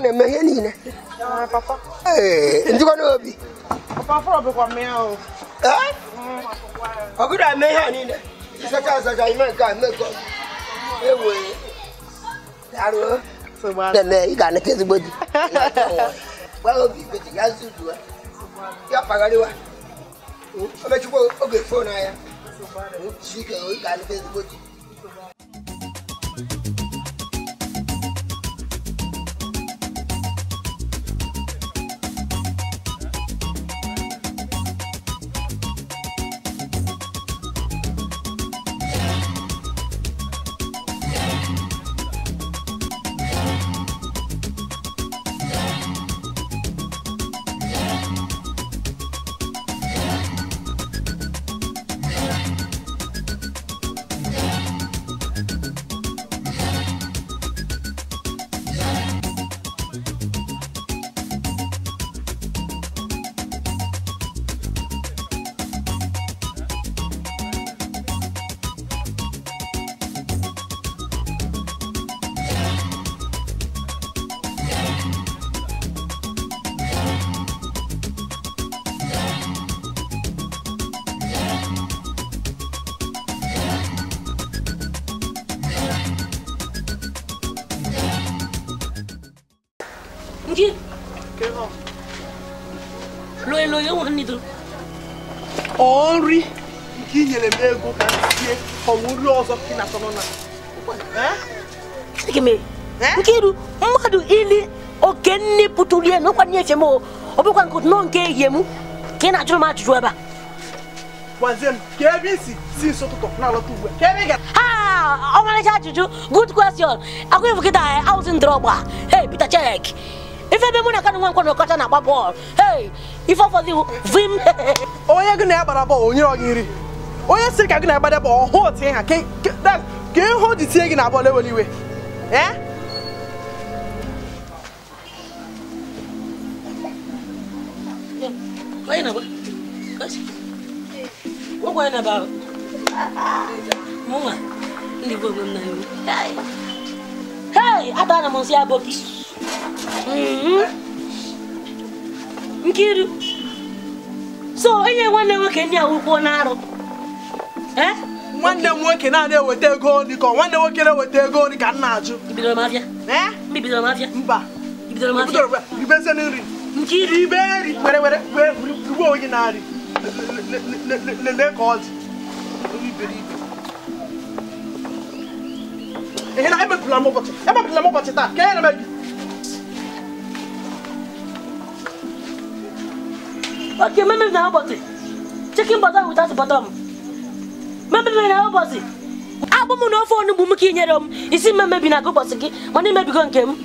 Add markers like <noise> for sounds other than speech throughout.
Papa, ọ na-eme ihe niile njikwa n'obi ọgụrụ eme ihe a niile ịsacha asacha ime nke a mmekọ ewe daruo ị ga-anata ezigbo di gwa obi beti ya nzuzu ya kpagharịwa o mechikwa oge fon anya ga-anata ezigbo di ọzọ ị na-atọ nke iru mmadụ ili oke nne pụtụrụ ihe na ụkwa nye efe m ọ bụkwa nke nọ nke ehie m ka ị na-ajụrụ m ajụjụ ebe a ọmarịcha ajụjụ good question akwa efu kịta awụzi ndọrọgba hey Peter Check ife ebe mụ na kanụ nwa nkwọ ọkọcha na-agba bọọlụ hey ife ọfọdụ vim onye gị na ya gbara bọọlụ onye ọ gị nri onye sịrị ka gị na agba bụ ọhụ otu ha ka ihe o tinye gị na bọọlụ ewere iwe atara m nsị aboki nkiru so nwanne nwoke ndị a ụkwụ na arụ nwanne m nwoke naanị eweta ego nri ka nwanne nwoke na-eweta ego nri ka m na-ajụ mba ibezi nri ibe nri were were gbuo onye na-arị lelee ka ọ dị iberibe ihe na emepụla m ụbọchị emepụla m ụbọchị taa ka enyere m gị Okay, remember now, but chicken butter without bottom. mɛmɛ bɛ na bɔsi abɔ mu na ɔfɔ ne bumu k'i isi mɛmɛ bi na ko bɔsi ki mɔni mɛ bi ko nkɛ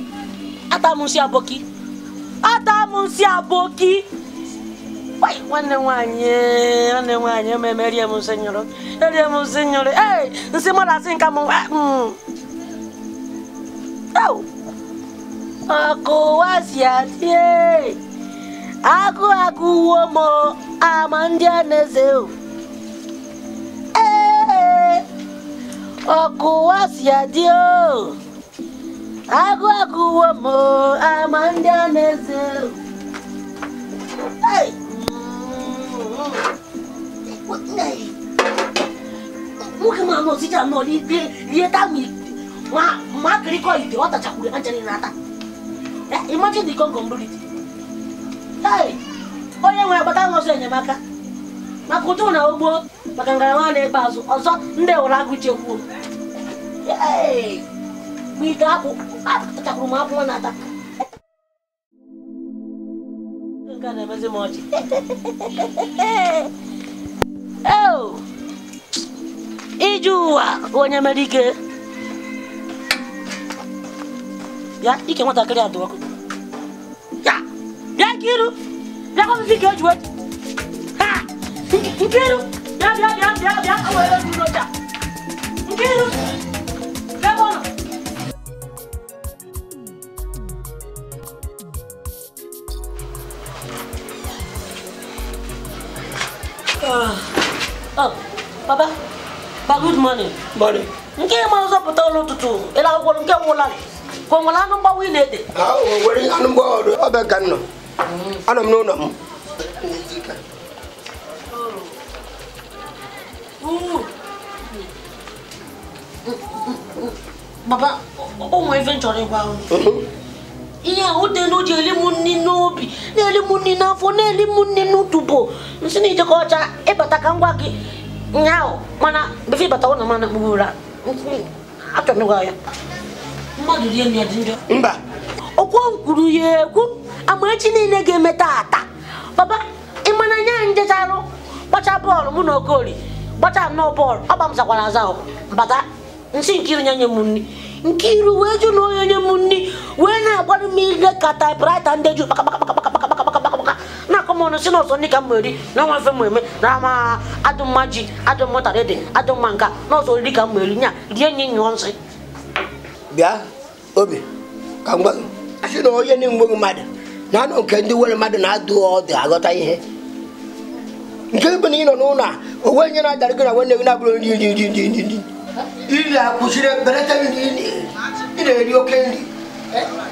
ata mu si abɔ ata mu si abɔ ki wai wane wanye wane wanye mɛmɛ ɛri ɛmu se nyɔrɔ ɛri ɛmu se nyɔrɔ ee nse mɔ da se nka mu ɛ mm ɛw ɔkò wa si ati ee aku aku o. Aku Aku dio. aku agụ agụwo m ama ndị a na-eze nwoke ma n'osija nọ n'ikpe rie tamil ma ma kau akịrịkọ ite ọ tachakwuru anjani na Eh, imagine Hey, concombrility onye nwere agbata nọsọ enyemaka maka ụtụ na ugbo maka ngalaba na azụ ọzọ ndị wụrụ agụ chekwuo ike m na-ata iji ụwa onye mere ike ike nwatakịrị ọkụ bịa iru bịa ike Nkiru, bịa bịa bịa bịa bịa o were duro bịa. Nkiru, ebe ọ Oh, papa, ba good morning. Morning. Nke ma ọzọ pụta ụlọ ụtụtụ, ịla akwụkwọ nke nwụla. Ka o nwere anụ mgbawa ị na-ede? Ah, o nwere anụ mgbawa ọdụ, ọ bụ ka m nọ. Hmm. Anọ m n'ụlọ m. baba o nwere ife nchọrọ ịgwa ihe ahụ dị n'o ji n'obi na-eli n'afọ na-eli m nri n'utubo nsị na ijekọ ọcha ịbata ka ngwa gị mana befe ịbata n'a mana kpuru ụra achọrọ m ya mba okwu kwuru ya ekwu amaechi niile ga-eme taa taa baba ịmana nya njecharụ kpacha bọọlụ mụ na gbachaa nnọọ bọọlụ ọgba m zakwana aza bata nsị Nkiru nye nye m nri Nkiru wee jụ na onye onye m nri wee na-agbara m ile ka taịpụraịta ndị ju kpakakpakakpakakpakakpakakpakakpaka na-akọ m ọnụ si n'ọsọ ndị ka m eri na ọnwa mfe m eme na ama adụmma ji adụmma ụtara ede adụmma nka n'ọsọ oriri ka m eri nya rie nye nyụọ nsị bịa obi ka m gwa gị asị na onye na-enweghị mmadụ na anụ nke ndị nwere mmadụ na-adụ ọdụ aghọta ihe nke bụ na ị nọ n'ụlọ onwe nye na-adara na nwanne gị na-abụrụ nri nri nri nri nri iri ndi ị na-eri oke nri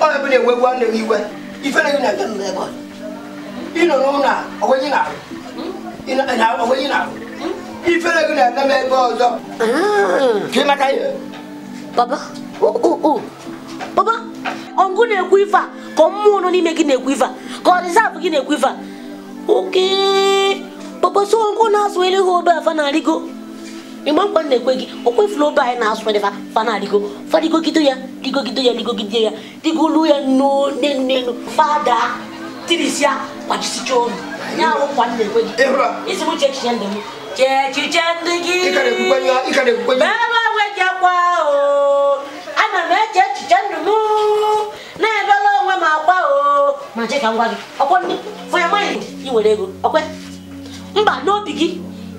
onye bụ na-ewe gwa nne gị iwe ifere gị na-aga nọ ebe ị nọ n'ụlọ a onwe gị na-arụ na-arụ ifere gị na-aga ebe ọzọ ka ị maka ihe baba baba ọngụ na-ekwu ife ka nọ n'ime gị na-ekwu ife a ka ọ dịzabụ gị na-ekwu a papa so nko na aswele ho ba fa na rigo imam ban ne kwegi o kwe flow ba e na aswele fa fa na rigo fa rigo kido ya digo kido ya digo kido ya rigo lu ya no ne ne no fada tirisia kwa chisicho nya wo kwa ne kwegi ehura isi e mu chechi ya ndemu chechi chandigi ikade kukwenya e ikade kukwenya baba weja kwa o ana me chechi chandumu na ebele onwe ma kwa o ma cheka ngwa gị ọkwa ndị fụ ya maịnd i were ego ọkwa mba n'obi gị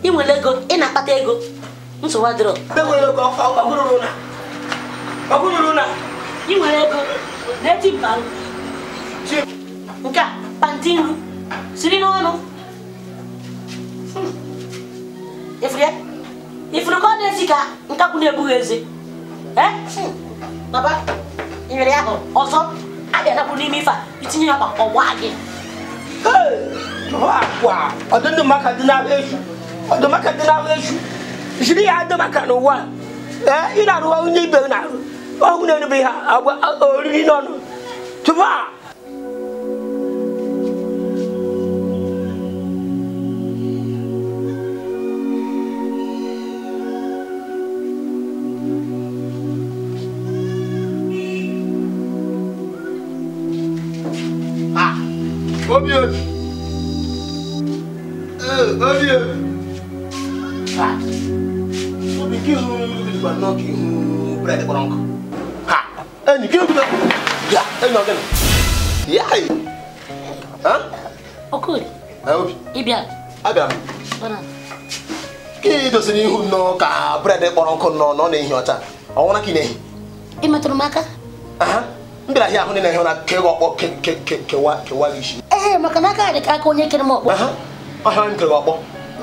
ị nwere ego ị na-akpata ego nsogbu na. ị nwere ego na mba nke a panti nru siri n'ọnụ ifuru ka ọ na-esi ka nkakwu na-ebughị eze baba nyere ya ahụ ọzọ a na adapụ n'ime ife a itinye ya ọgba ọgba gị hɔ akɔ a ɔde ne maka de na ahwɛ su ɔde maka de na ahwɛ su ziri yɛ ade maka no wa ɛ ina no wa onye ibe na ɔhu na no bi ha abɔ oriri na ɔno tufa. Ah, Obvious. ọkụ nọ na ọ na-ehi ọcha ọnwụra ka ị na-ehi ị m aka m ahịa ahụ na-ehi ụra ọkpọ kewa isi ee maka na aka aka onye kere m ọkpọ ọhịa m kere ọkpọ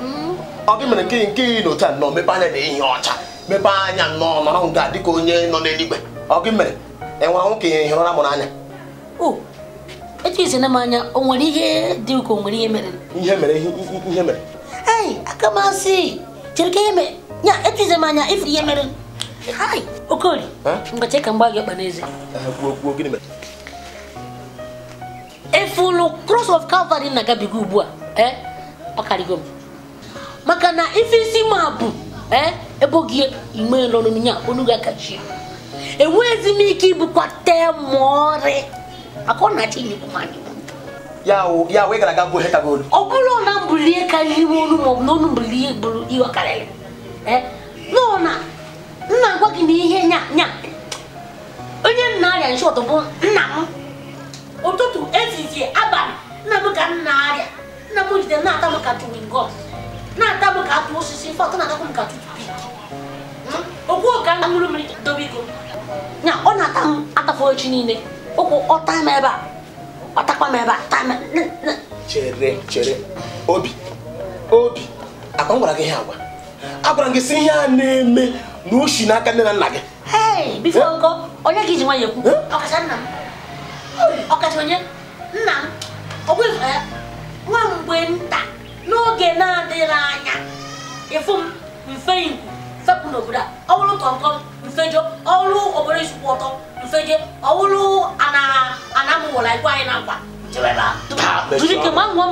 mm. ọ mere nke nke ị a nọ mepe anya na-ehi ọcha mepe anya nnọọ nọrọ nga dịka onye nọ n'eluigwe ọ gị mere enwere nwoke ihe ụra mụrụ anya etu na m anya o nwere ihe dị ka ihe mere ya etize m anya ifuru ihe mere okori mgbachi ka mgba gị ọkpa n'eze eh, efulu cross of calvary na-agabiga ugbu a eh? ọ karịgo m maka na ife isi ma bụ eh? ebe oge ime lọrụ ya onu ga-akachi mi k'i bu ike te maọrị maka ọ na-achị nyegbu mmadụ ya wee gara aga bụ hekagolu ọ bụrụ na mbulie karịrị ime onu maọbụ na onu mbulie bụrụ ihe ọ karịrị lụna nna gwa gị na ihe nya nya onye nna arịa nshọt bụ nna m ụtụtụ ezizi abalị nna m ka nna arịa nna m jide na-ata m ka tuwingọm na-ata m ka atụ osisi fọtụ na-atakwa m ka tutupik hmm? okwu ka ṅụrụ mmiri dobe iko nya ọ na-ata m atafọ echi niile ụkwụ ọ m ebe a ọ m ebe a taa m chere chere obi obi akwa m gwara gị ihe agwa agwara m gị si ihe a na-eme na n'aka nne na nna gị onye gị ji nwanyị ekwu ọkacha nna m ọkacha onye nna m nwa mgbe nta n'oge na-adịghị anya ịfụ m mfe ikwu fepụ n'obodo a ọ bụrụ mfejo ọrụ isukwu ọtọ mfeje anamụwụla anyị na nkwa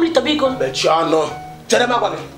ọnụ gị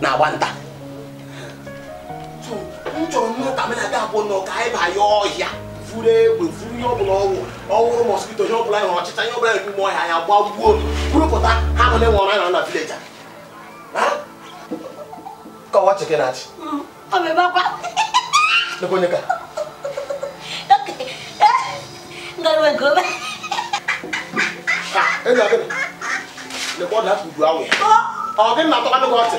na wanta so m chọrọ mmata menata abụọ na ọka ịba ya ọhịa furu egbe furu ihe ọbụla ọgwụ ọhụrụ mọskito ihe ọbụla hụrụ ọchịcha ihe ọbụla hụrụ ime ọhịa ya gba gbuo kwurụpụta ha bụ na-enwe ọra na vileja kọwa chikin achị nekwenye ka ị ga-abịa lekwa ọ na-apụ udu anwụ ọ gị na-atọkwa n'ụgwọ ọtị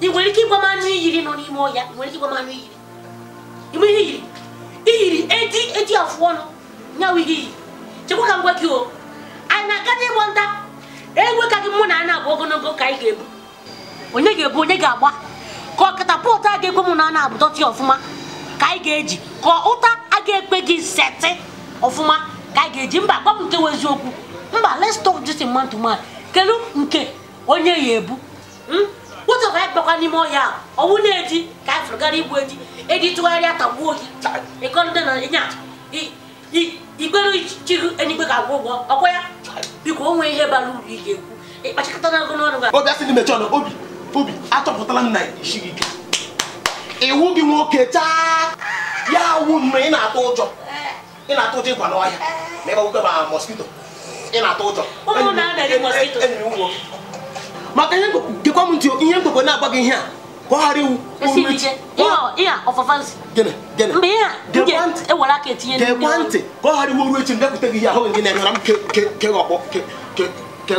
ị nwere ike ịgwa m anụ iyiri nọ n'ime ọhịa ị nwere ike ịgwa m anụ iyiri ime ihe iyiri iyiri eji eji afụ ọnụ nyawa ihe iyiri chekwa ka m gwa gị o anyị na-aga n'ịgbọ nta egwe ka gị mụ na ana abụ ogologo ka anyị ga-ebu onye ga-ebu onye ga-agba ka ọkatapọtụ a ga-ekwe mụ na ana abụ dọtị ọfụma ka anyị ga-eji ka ụta a ga-ekpe gị setị ọfụma ka anyị ga-eji mba gwa m nke wụ eziokwu mba let's talk this man to man nke onye ya ebu hmm? ụtụ ka anyị n'ime ọhịa ọnwụ na-eji ka anyị fụrụ gara igbu eji eji tụgharịa tagbuo gị ịkọrịta na ịnya igbere chiri enigbe ga-agwụ ụgwọ ọkwa ya biko onwe ihe bara uru ị ga-ekwu ịkpachakọta na n'ọrụ gị obi dị obi obi achọpụtala m na ike iwu gị taa ya ị na-atụ ụjọ ị na-atụ ụjọ n'ọhịa ma ma na-atụ ụjọ maka ihe gekwa m ntị ihe mkpekwe na-agba gị ihe a ka ọ ghara iwu gekwa e ntị ka ọ ghara iwu ruo echi mbịakwute gị ihe ahụ gị na-enyera m kegị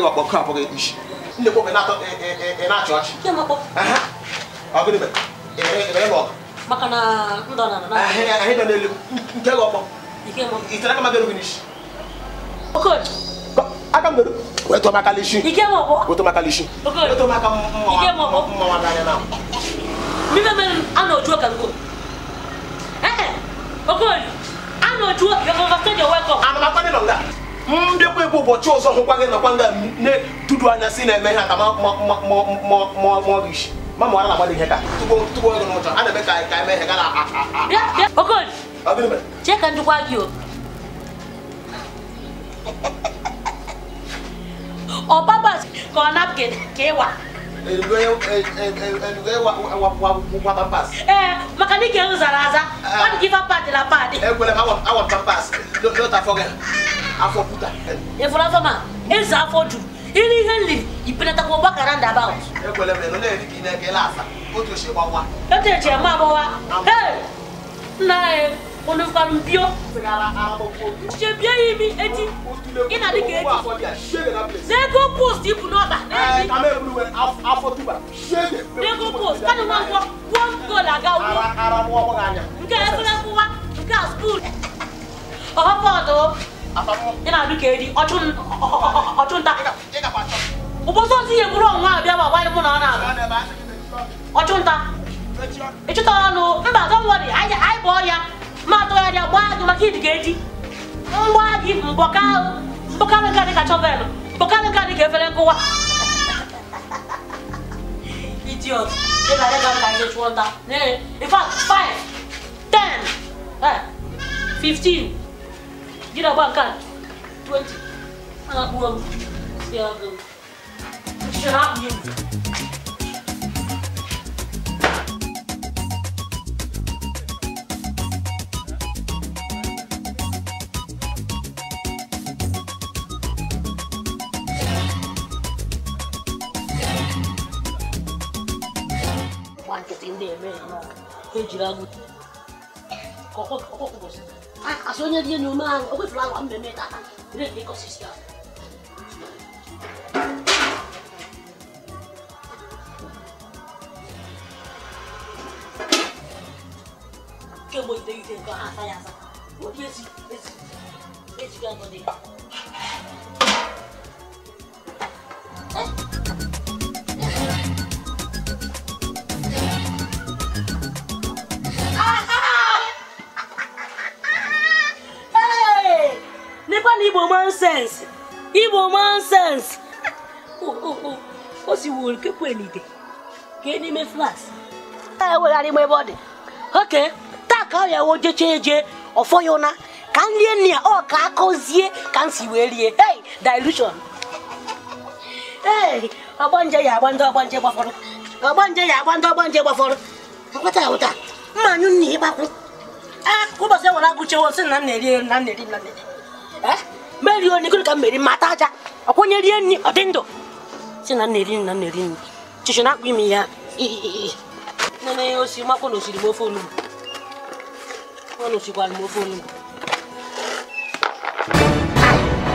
ọkpọ ka abụghị na-achị ọchị ike aka m wetu wetụ m lishi wetụ wetu lishi na na mbịakwa ụbọchị ọzọ hụkwa gị nọkwa nga anya si na-eme ihe aka na-agbado ihe ka a na-eme ka ka eme ihe ga na chee on purpose kan napkin kee wa. wa pampas. Eh, maka ni kee zara aza wọn ah. kì í fa paadi la paadi. ẹ gbọ́dọ̀ awọn awọn pampas n'o ta fọ kẹ afọ kuta. efura eh, fama e zan afọ dun e ili heli ipinata ko bakara ndaba o. e gbọ́dọ̀ mẹ n'o ye k'i nẹ k'e la sa o t'o se wa wa. e t'o se ma bọ wa. ee n'a ye onukwalu bio shebi eyi mi eti gị na dịka eti n'ego post ibu n'ọba n'ego post kadị nwa nkwọ gwuo gol aga wuo nke efere kwụwa nke a skuul ọhọbọdụ ị na-adụ ka edi ọchụnta ụbọchị ọtụ ihe bụrụ ọnwa abịa ma gbanyụ mụ na ọ na-abụ ọchụnta ịchụta ọnụ mba don't worry anyị bụ ọrịa matụgharịa gbaa gị maka idiga eji mgbaa gị mbọkarị nka dịka chọvelụ mbọkarị nka dịka efere nkụwa <laughs> idiot ị ga adịga ka ihe chụọ nta in fact 5 10 15 jiri agba nke 20 a na-akpụrụ m si agụ Shut up, eti ndị eme ya n'ọkụ ha ejiri agụ kasị onye dị enyi ume ahụ o kwefuru agwa mmemme tata redi ekosistem kemgbe iteghete nke ha asa ya asa ezi, ezi, ezi ejighị agụ ya na igbo nonsense igbo nonsense oh, oh, oh. o siwuru kekwe n'ite kee n'ime flas ewegharị m ebe ọ dị oke taa ka ọ ya wo jecha eje ọfọ ya ụna ka m rie nri ya ọ ka akọzie ka m si wee rie hey dilution ee ọgbanje ya agba ndị ọgbanje gbafọrọ ọgbanje ya agba ndị ọgbanje gbafọrọ nkwata ụta mmanya anyụ nna ịgbakwụ ah, ụbọchị ewere agụchewo sị na m na-eri na m na-eri na na-eri Eh? meri onye ka m meri mata aja ọkwanye rie nri ọ dị ndụ si na nna eri na nna eri nri chichi na imi ya osi makwa eh? na osiri ofe ọ na osikwara ofe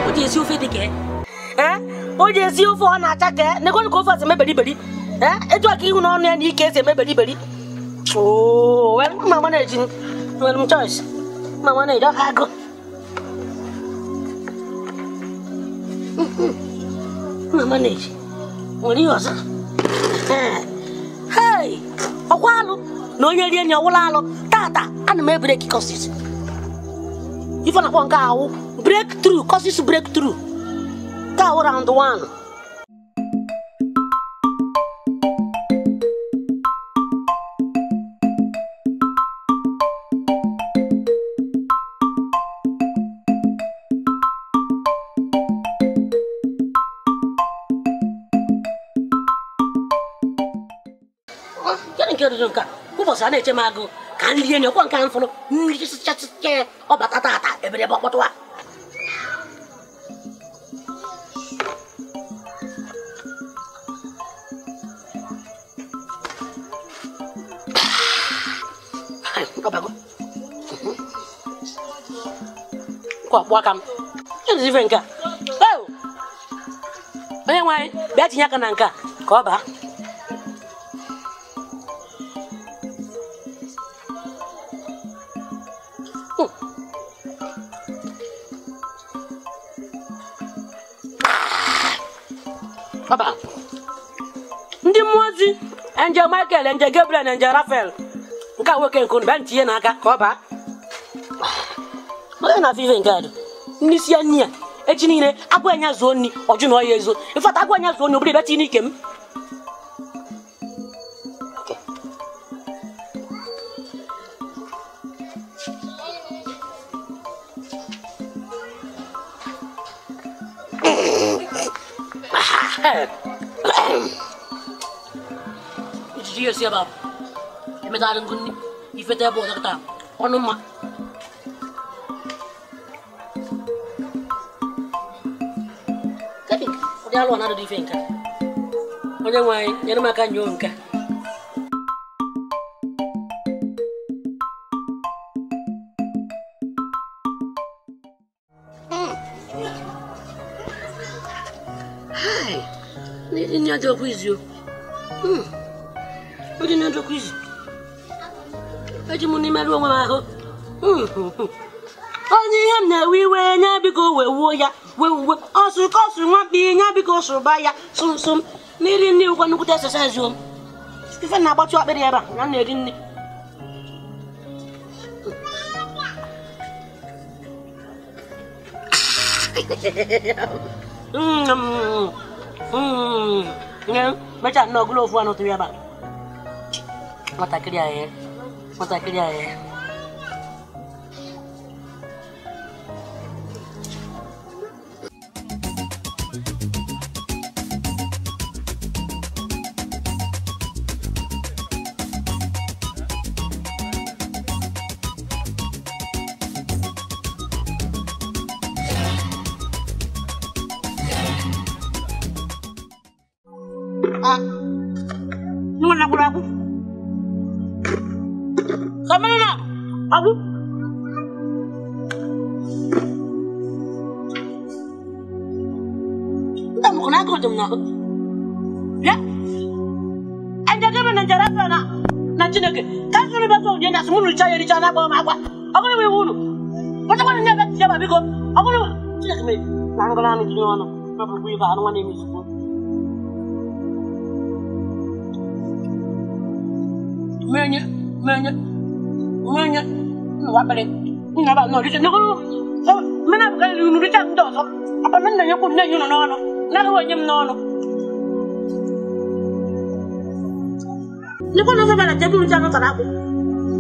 o ji esi ofe dị esi ofe ọ na-acha ka nekwanụ ka ofe ọsị beri etu aka ihu n'ọnụ ya na ike esi emeberiberi mma mana eji nwere m mma mana eji ọha na manage nwere ihe ọzọ hey ọkwa alụ na onye rie nri ọwụla alụ tata ana m ebreki kọsis ife nke ahụ break through kọsis break through ka awụ round one ọsa na-eche m agụ ka nlie nye ọkwa nke a mfụrụ mmiri sịchasịcha ọbata tata ebere ebe ọkpọtụwa ọkpụ aka m ife nke a onye nwe anyị bịa tinye aka na nke a ka ọ baa nje Michael nje Gabriel na nje Rafael nke a nwoke nke unu bịa ntinye n'aka ka ọ baa onye na-afụ ife nke adụ n'isi ya nni ya echi niile agwa anya zuo nni ọjụ na ọya ezo ịfata agwa anya zuo nni obere bịachi n'ike m Iya siapa? ba? E may talang kundi, ifete po kita. Ano ma? Kati, Udah alo na di fengka. Oh, kundi hmm. Hai, ini ada kuis yuk. Hmm. njọkọ eji onwe ahụ hmm. onye ihe m na-ewe iwe nya biko wee wuo ya wee uwe ọsụ ka ọsụ ihe nya biko ya sụmsụm n'iri nri ụgwọ nnukwute exercise om ife na-agbatụ akpịrị ebe a na na-eri nri hmm. hmm. mechaa nnọọ gụlụ ofu anọ ebe a Mata aku di air motor aku ericha na akpọrọ m agwa ọgụrụ m iwu unu kpachakwanụ nye ebe tinye ma biko ọgụrụ chineke mee na ngụrụ anụ tinye ọnụ ma ibe anụ nwa na-eme izugbo menye menye menye nwakpịrị nna ba abụkarịrị unu richa ndị ọzọ akpana nna nyekwu nne nye unu n'ọnụ na-agaghị m n'ọnụ nyekwa na ọzọ bịara jebe unu anụ tara akpụ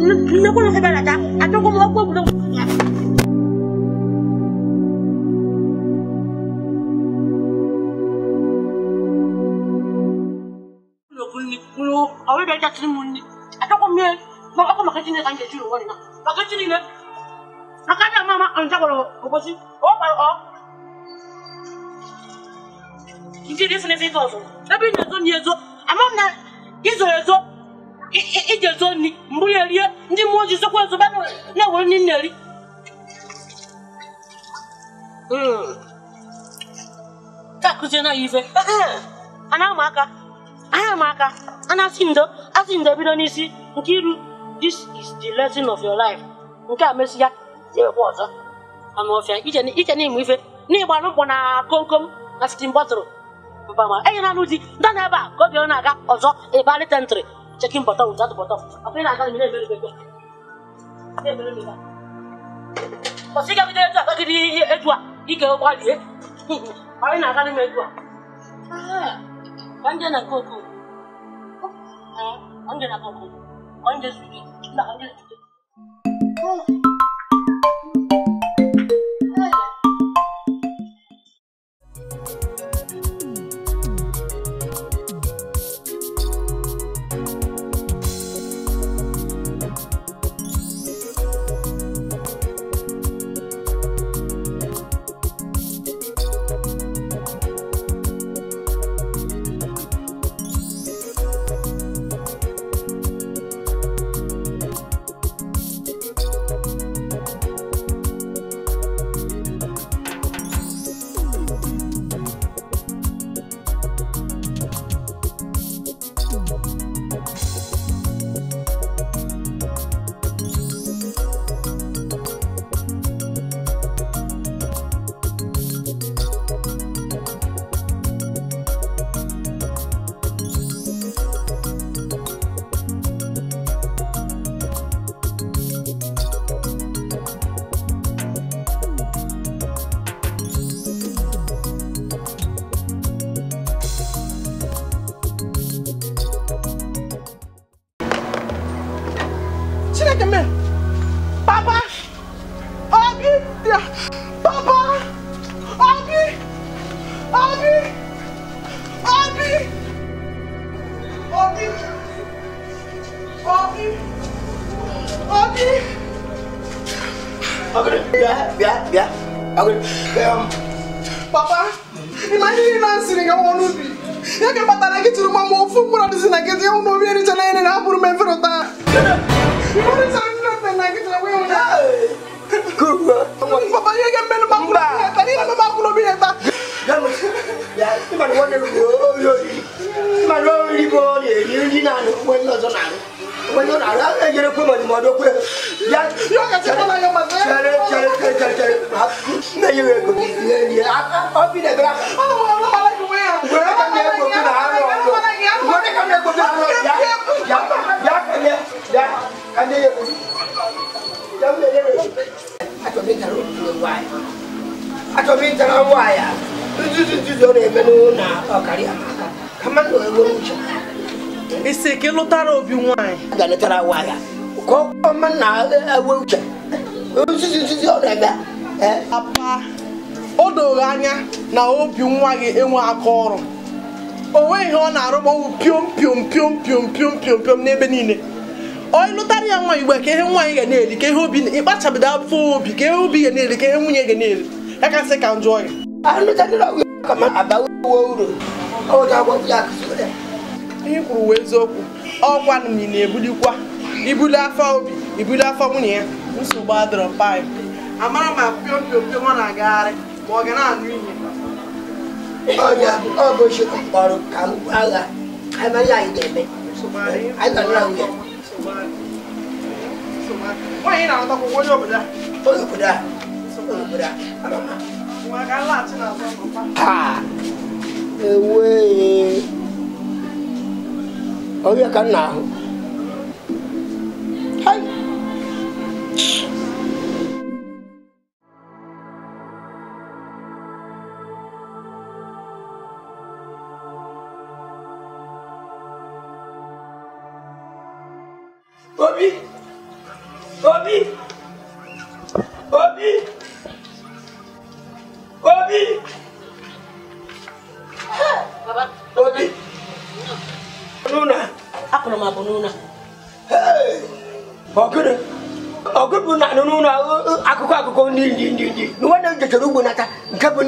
loko lo sebelata a toko mo ko bulo lokuni kulo awe da tatri munni a toko me ba ko makati ne kanje juro wona makati ne akanya mama anja ko obosi o pa o Ndi ndi sene sene tozo. Ebi nyezo nyezo. Amam na izo yezo ije zoni mbuye lie ndi moji sokwa zobano na woni neri mm takuze na ife ana maka ana maka ana sindo asindo bido n'isi nke this is the lesson of your life nke a mesịa na-ekwe ọzọ ama ọfịa iche n'ịmụ ife n'ịgba n'ụkwụ na komkom na sitin bọtụrụ mpama enyi na anụ di dọ n'ebe a ka obi ọ na-aga ọzọ ịbalite Checking bottle without the bottle. Appear and tell me very very good. Very very good. But see, kita you do that? Can you do that? You can go there. Appear nak tell me do that. Ah, anje nak koko. Ah, anje na koko. Anje sweet. Na anje sweet. na-enye m ego obi na-ebere ka isi ka lụtara obi ka ọ na uche ọ na-eme papa o doro anya na obi nwa gị enwe aka ọrụ o nweghị ihe ọ na-arụ gbanwụ piom piom piom piom piom n'ebe niile onye lụtara ya nwa igbe ka ihe nwa nwaanyị ga na-eri ka ihe obi ịkpachabido afọ obi ka ihe obi ga na-eri ka ihe nwunye ga na-eri ya kasị ka njọ ya ihe kwuru wee eziokwu ọkwa na ị na-ebulikwa ibuli afọ obi ibuli afọ nwunye ya nsogbu adịrọ mpa amara ma piompiompio nwa na-agagharị ma ọ ga na-anụ ihe ọ bụ Chukwu kpọrọ ka m gwa agha amaghị anyị ga-eme anyị nọ na nwunye nwaanyị na-alọtakwụkwọ onye obodo a onye obodo a onye obodo a ewee ọrịa ka m na-ahụ Obi! Obi! Obi! Obi! Baba. Obi! Nuna! Akọrọ m abụ Nuna. Ọgụrụ! Ọgụ bụ na nunu na akụkọ akụkọ ndị ndị ndị ndị. Nwa na-ejechara ugbo n'aka nke bụ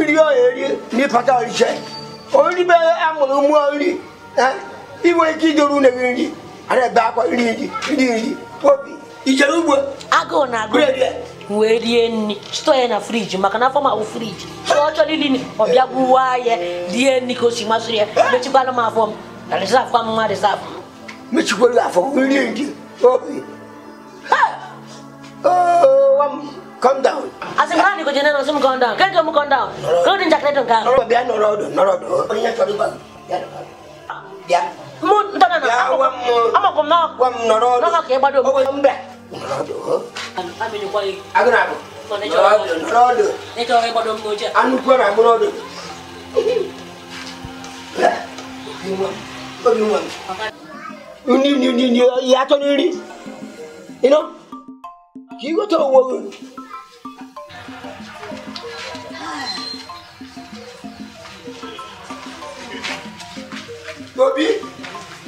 nri ọ eri n'ịpata ọrịcha. Ori be amụrụ mmụọ nri. Inwe ike idoro une gị nri. anabakwa lindi lindi popi ijere ugbo agụụ na-agụ wee rie nri chịtọ ya na friji maka na afọ ma ahụ friji ọ chọrọ iri nri ọ bịa gbuwa ya rie nri ka o si masịrị ya eh. mechikwala m afọ m na rizaf kwa mma rizaf mechikwala afọ rie nri obi calm down asị m ha na igoje nena sị m calm down ka nke m calm down ka ụdị njakịrị dị nke ahụ bịa nọrọ ọdụ nọrọ ọdụ onye chọrọ ịgwa m bịa bịa mun tana na nó. kom dạ, no wam no no no nó bado ko yum be no ami ko yi nó do no do ne to re bado mo je nó ko na mo do ko yum wam ni ni ni ni ya to ni được. you know ki go to wo Bobby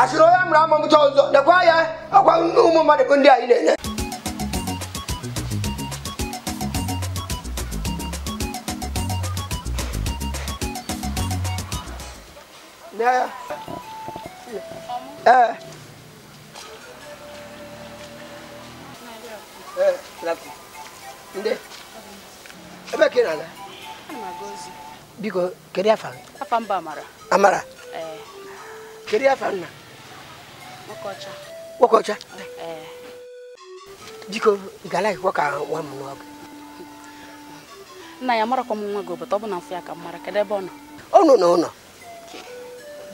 asịrị onye mụrụ amụ mụta ọzọ lekwa ya ọkwa ụmụ mmadụ bụ ndị anyị na-enye ee ndị ebe na biko kedu afa mba amara Kedu afa nna? Nwokocha. Nwokocha? Biko, eh. ị ga ka nwa m nwa Nna ya marakwa m nwa gị obodo ọ bụ na mfe ya ka m mara kedu ebe ọ nọ? Ọ nọ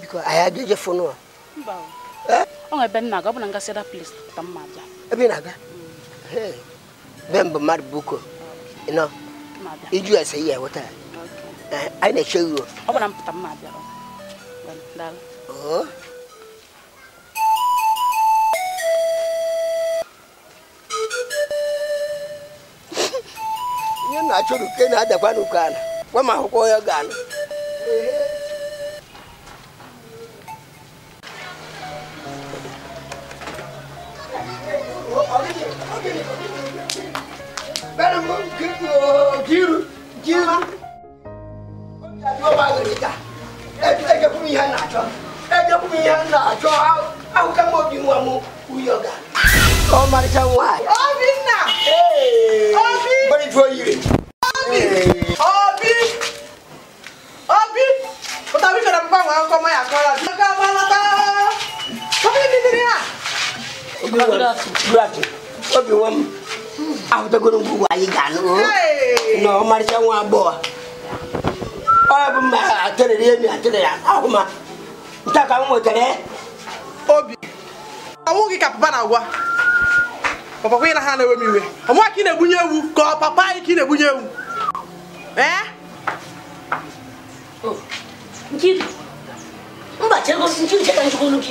Biko, anyị n'ụlọ. Eh? ọ ebe nna ọ bụ na ngasị da plis ka abịa. Ebe ị na-aga? Eh, be mbụ mmadụ buko. Nọ. Iju ese ihe weta. Anyị na-eche iwe. Ọ bụ na abịa. hàn. nye na achọrọ ke na adakwa n'ụkọ ala gwa m akwụkwọ ya ga-ala Jiru, jiru ẹjẹ kun yẹn na àjọ awo ká mọ bí wọn mú wúyọ ga. ọ marisa wa. ọbí nà. ọbí. bẹ́ẹ̀ni tí o yiri. ọbí. ọbí. ọbí. o tàbí fẹ̀rẹ̀ mú báwọn akọ mọ́ yàtọ̀ la. ọgá bá lọ tá. ọbí mi ti rí à. obi wọn gúrafì obi wọn ahutagono gbogbo ayé gànú. nà ọ marisa wa bọ̀ wa. ọ yà bọ̀ mà àtẹ̀lẹ̀ yé mi taa ka m nwetara eh? obi ọnwụ gị ka papa na-agwa papa kwa na ha na-ewe m iwe ọnwa ka ị na-egbunye ewu ka ọ papa anyị ka na-egbunye ewu eh? oh,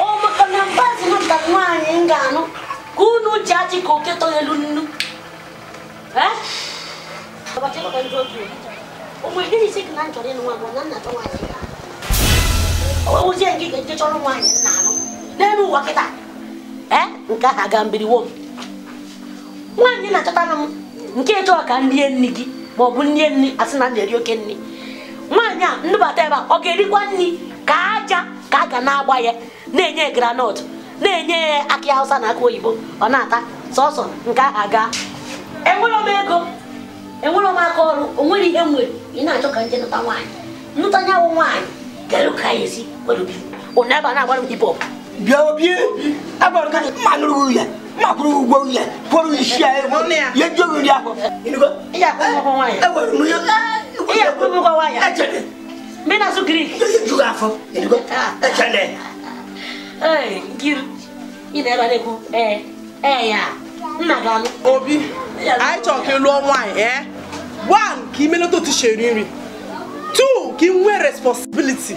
ee maka na mbazi nwata nwaanyị ga-anụ ka unu ji achị ka oke eh? na m ịnụ nwa na nna nwaanyị ga ozi a nke ga-eje chọrọ nwaanyị nna n'elu ụwa kịta eh? nke ahụ aga mbiriwo m nwaanyị na-achọtara m nke chọọ ka nrie nri gị ma ọ bụ nrie nri asị na na-eri oke nri nwaanyị a ndụbata ebe a ọ ga-erikwa nri ka aja ka a ga na-agba ya na-enye granọt na-enye ya akị hausa na aka oyibo ọ na-ata sọsọ nke ahụ aga enwere m ego enwere m aka ọrụ o nwere ihe m nwere ị na-achọ ka nje nụta nwaanyị nụta nyawụ nwaanyị kedu ka ya esi wọ́n bí onaba náà wọ́n hip hop. bia obi abali ka ma nuru yɛ ma kuru gbɔ yɛ polu isia yɛ yɛ jo mi diya. i y'a kɔn kɔn wa yɛ. ɛ wɛrɛ mun ye. i y'a kɔn kɔn wa yɛ. ɛ cɛ dɛ. n bɛ na so kiri. i ye juguya fɔ. ɛ cɛ dɛ. ɛɛ giri i na ɛba de ko ɛɛ ɛɛ ya n na gan. obi a ye jɔ k'i lɔ wa yɛ one k'i mele to ti se rin rin two k'i n we responsibility.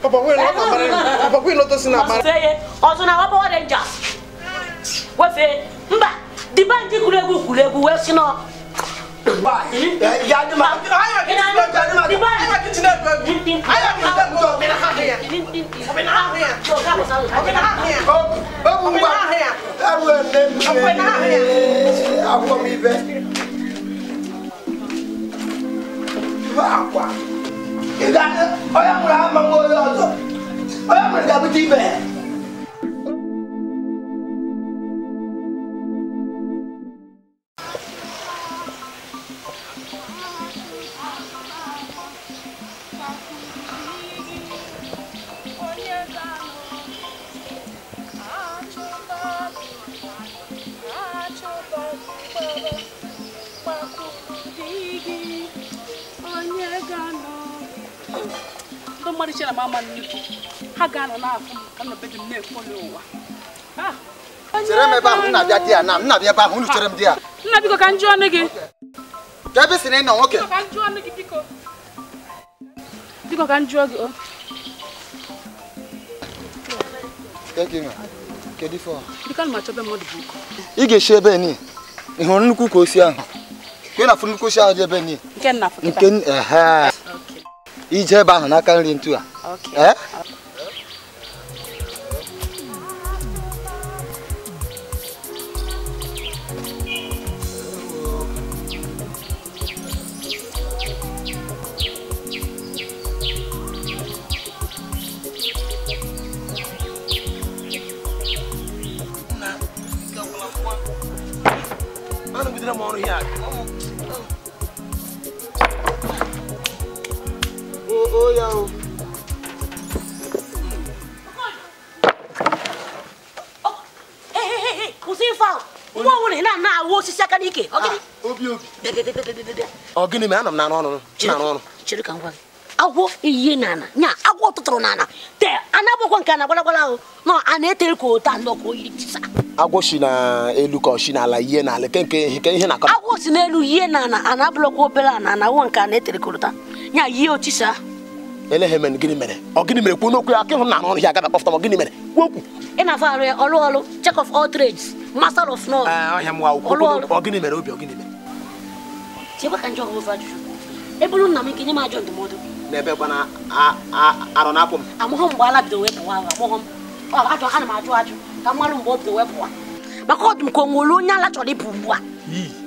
Papa, we're not married. Papa, we're not using our marriage. Say, also now, Papa, what danger? What say? Mba, the bank is kulegu kulegu. Where's you know? Wow. ìgbà ọyọkùnrin àmọ́ ọyọ ọ̀tọ̀ ọyọkùnrin dàbí ti bẹ̀rẹ̀. ọmarịcha na ha ga-anọ na-afụ ka m ebe ahụ nna bịa di ya na nna bịa ebe ahụ unu chere m di ya nna biko ka njụ ọnụ gị ka ebe si na ị nwoke biko ka njụọ gị ị ga-esi ebe ni ị hụrụ nnukwu ka osi ahụ ka ị na-afụ ije ebe ahụ n'aka nri ntu a eh? n'ime anọ m na ọrụ ọrụ agwọ ihe n'ala nya agwọ tụtụrụ te anabụkwa nke na gwalagwala ahụ nọ a na-etere ka ote anọ tisa agwọ si ka n'ala ihe n'ala ke nke ihe na-akọ agwọ si n'elu nana a na-abụlọkwa obere agwọ nke a na-etere ka ụta nya otisa mere ọ gịnị mere kwuo n'okwu aka ịhụ na ya gịnị mere kwuo okwu na-afọ arụ ya ọlụ ọlụ check of all trades master of wa ọ gịnị mere obi ọ gịnị mere chekwa ka njọ ọhụrụ ajụjụ ebe olu nna m nke nye m ajọ ndụmọdụ n'ebe kwana arọ na-apụ m amụghọ mgbe ala bido wee pụwa amụghọ m ajọ ha na m ajụ ajụ ka mmalụ mgbe o bido wee pụwa maka ọ dị m ka o nwere onye ala chọrọ ịpụ ugbu a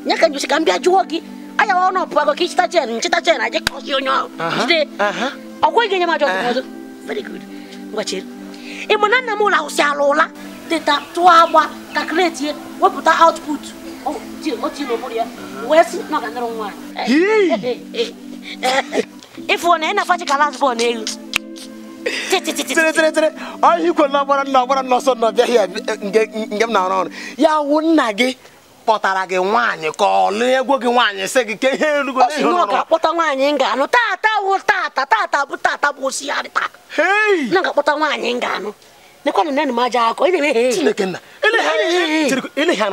nye ka njosi ka m bịa jụọ gị anya ọ nọ pụago ka ịchịta chen nchịta chen aje kọsi onye ahụ jide ọ kweghị nye m ajọ ndụmọdụ very good ngwachere ị ma na nna m ụlọ ahụ si ala ụla teta tụọ agba ka kretie wepụta output ịfụ na ị na ka last bọọlụ n'elu tịrịtịrịtịrị onye ikwe na ọgbara nna ọgbara na ya wụ nna gị kpọtara gị nwaanyị ka gị nwaanyị sị gị ihe na nwaanyị ga-anụ wụ bụ bụ taa na ga-akpọta nwaanyị ga-anụ m aja akọ ị na-eme chineke nna ile ka ihe na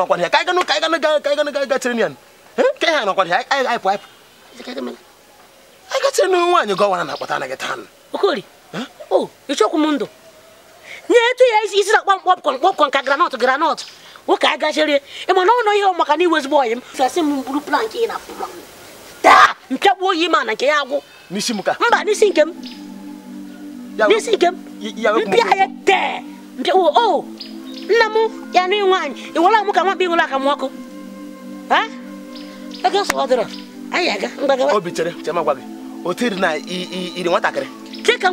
na kpọmkpọ kpọmkpọ nka granọt granọt nwoke a ịma na ihe maka na iwe ezigbo ọyị m fesị m buru plank ị na-afụ taa mpịakpu oyi ma na nke ya agwụ mba n'isi nke nna mụ ya na nwaanyị iwere m ka nwa bụ ịnwere akamụ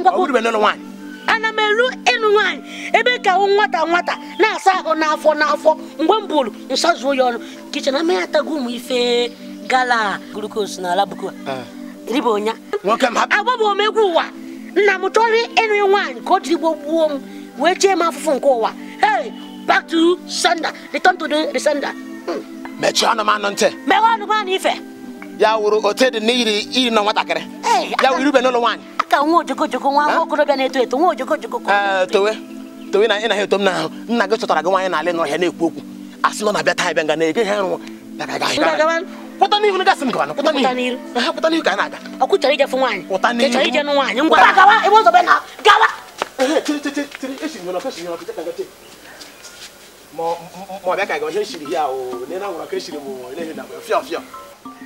ọkụ ana m elu ịnụ nwaanyị ebe ka nwata nwata na-asa ahụ n'afọ n'afọ mgbe m bụrụ nsọ ya ọnụ kichin amaghị atago ụmụ ife gala glukos na alabuko ah. ribonya agbabụ m egwu ụwa nna m chọrọ ịnụ nwaanyị ka o jiri gbo gbuo m wee chee m afụfụ nke ụwa back to sender. Return to the, the hmm. mechie ọnụ m anụ ntị meghe ọnụ m anụ ife ya wụrụ ote dị n'iri iri nọ nwatakịrị ya wụrụ ibe n'ụlọ nwaanyị aka nwa ojoko joko nwa nwa okorobịa na-eto eto nwa ojoko joko towe towe na ị na-ahụ eto m n'ahụ nna gị chọtara gị nwaanyị n'ọhịa na-ekwu okwu asị nọ na-abịa nga na-ege ha pụta n'ihu m pụta pụta n'ihu ka a na-aga ebe ụzọ na gawa mo mo bɛ ka kɛ ne siri ya o ne na ŋɔrɔ ke siri mo ne ye nabɔ fiyɔ fiyɔ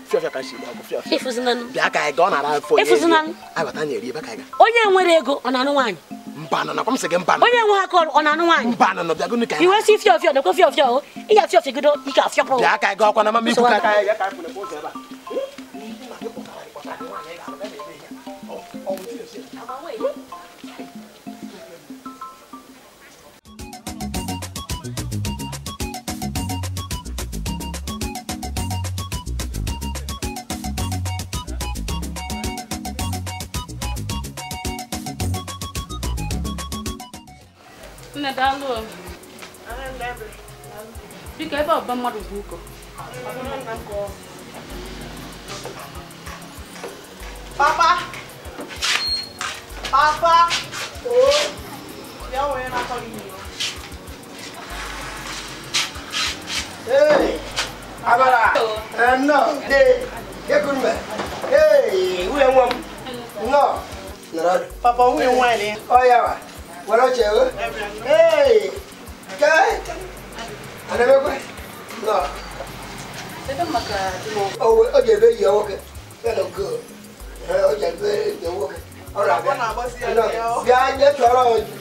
fiyɔ fiyɔ ka siri ko fiyɔ fiyɔ. efusi nanu. bi a ka ye gɔn nana fɔ n ye. efusi nanu. ayiwa taa ɲɛ ri i bɛ ka ye. o ɲɛ ŋwere ego ɔna nu waani. n banna na komi sɛgɛn n banna. o ɲɛ ŋwa kɔ ɔna nu waani. n banna na bi a ko ne ka ye. iwe si fiyɔ fiyɔ ne ko fiyɔ fiyɔ o i y'a fiyɔ fiyɔ gido i k'a fiyɔ pɔn. bi a ka ye gɔn kɔnɔ ma min kun ka ye. Nne daalụ o. Biko ebe ọba mmadụ bụ ụkọ. Papa! Papa! Oo! Bịa wee na-akọ gị nyo. Ee! Abara! Ee, nnọọ! Ee! Ekuru mbe! Ee! Nwunye nwa m! Nnọọ! Papa, nwunye nwaanyị. Ọ ya Buenas noches, Hey, ¿qué? ¿Aneme kwe? No. Sebe maka timo. Oh, oje be yo woke. Hello good. Oje be yo woke. Ora be. Ona bo si yo. Ya je toro oju.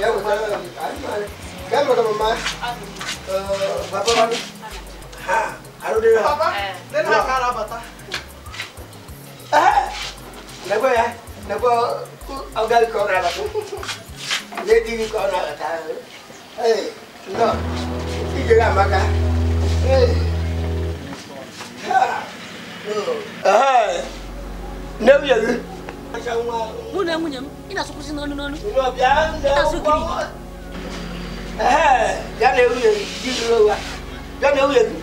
Ya wo toro oju. Ani mare. Ke mo ko mama. Eh, papa mami. Ha. Aru de. Papa. Den ha kara bata. Eh. Nagwe ya. Nagwe. Ogal ko ra bata. lady kọ nọ ta ee nọ ije ga amaka ee nne nwunye gị mụ na nwunye m ị na-asụkwụsị n'ọnụ n'ọnụ ịtasụ gịrị ee ya na nwunye gị di ruru ụwa ya na nwunye gị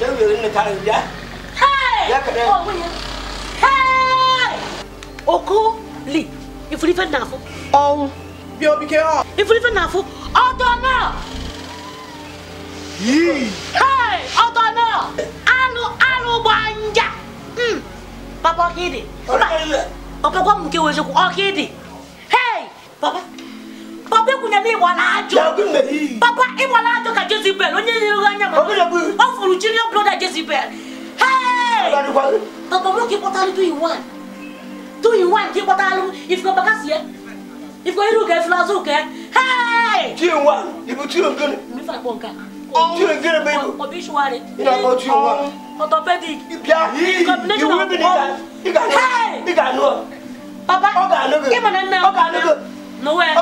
ya nwunye gị nnetara gị ya ya kere okuli ifurife na-afụ ọnwụ bio bike o. Ifurife na afụ ọdọ náà. Yii. Hei ọdọ náà anụ anụ gba nja. Papa ọkịdị. Papa gwa m nke wee eziokwu ọkịdị. Hei papa. Papa ekwunya na ịgba na-ajụ. Papa ịgba na-ajụ ka Jezibel onye nyere anya ma ọ fụrụ jiri broda Jezibel. Hei. Papa nwoke kpọtara do you want? Do you want ka ị kpọtara alụ if you go back as yet? ìfọ̀ irú kẹ fúlá sùn kẹ. tí o wa ibi tí o gẹrẹ. mi fà bọ̀ nǹkan. tí o gẹrẹ bẹ́ẹ̀ lò. ọbí ṣùwà rẹ. ìyá kan tí o wa. orthopedic. ìbíà ìwé mi nìkan. ìgbà nù ọ. baba ọgà nù bẹ. kí mo nà nà. ọgà nù bẹ nowhere.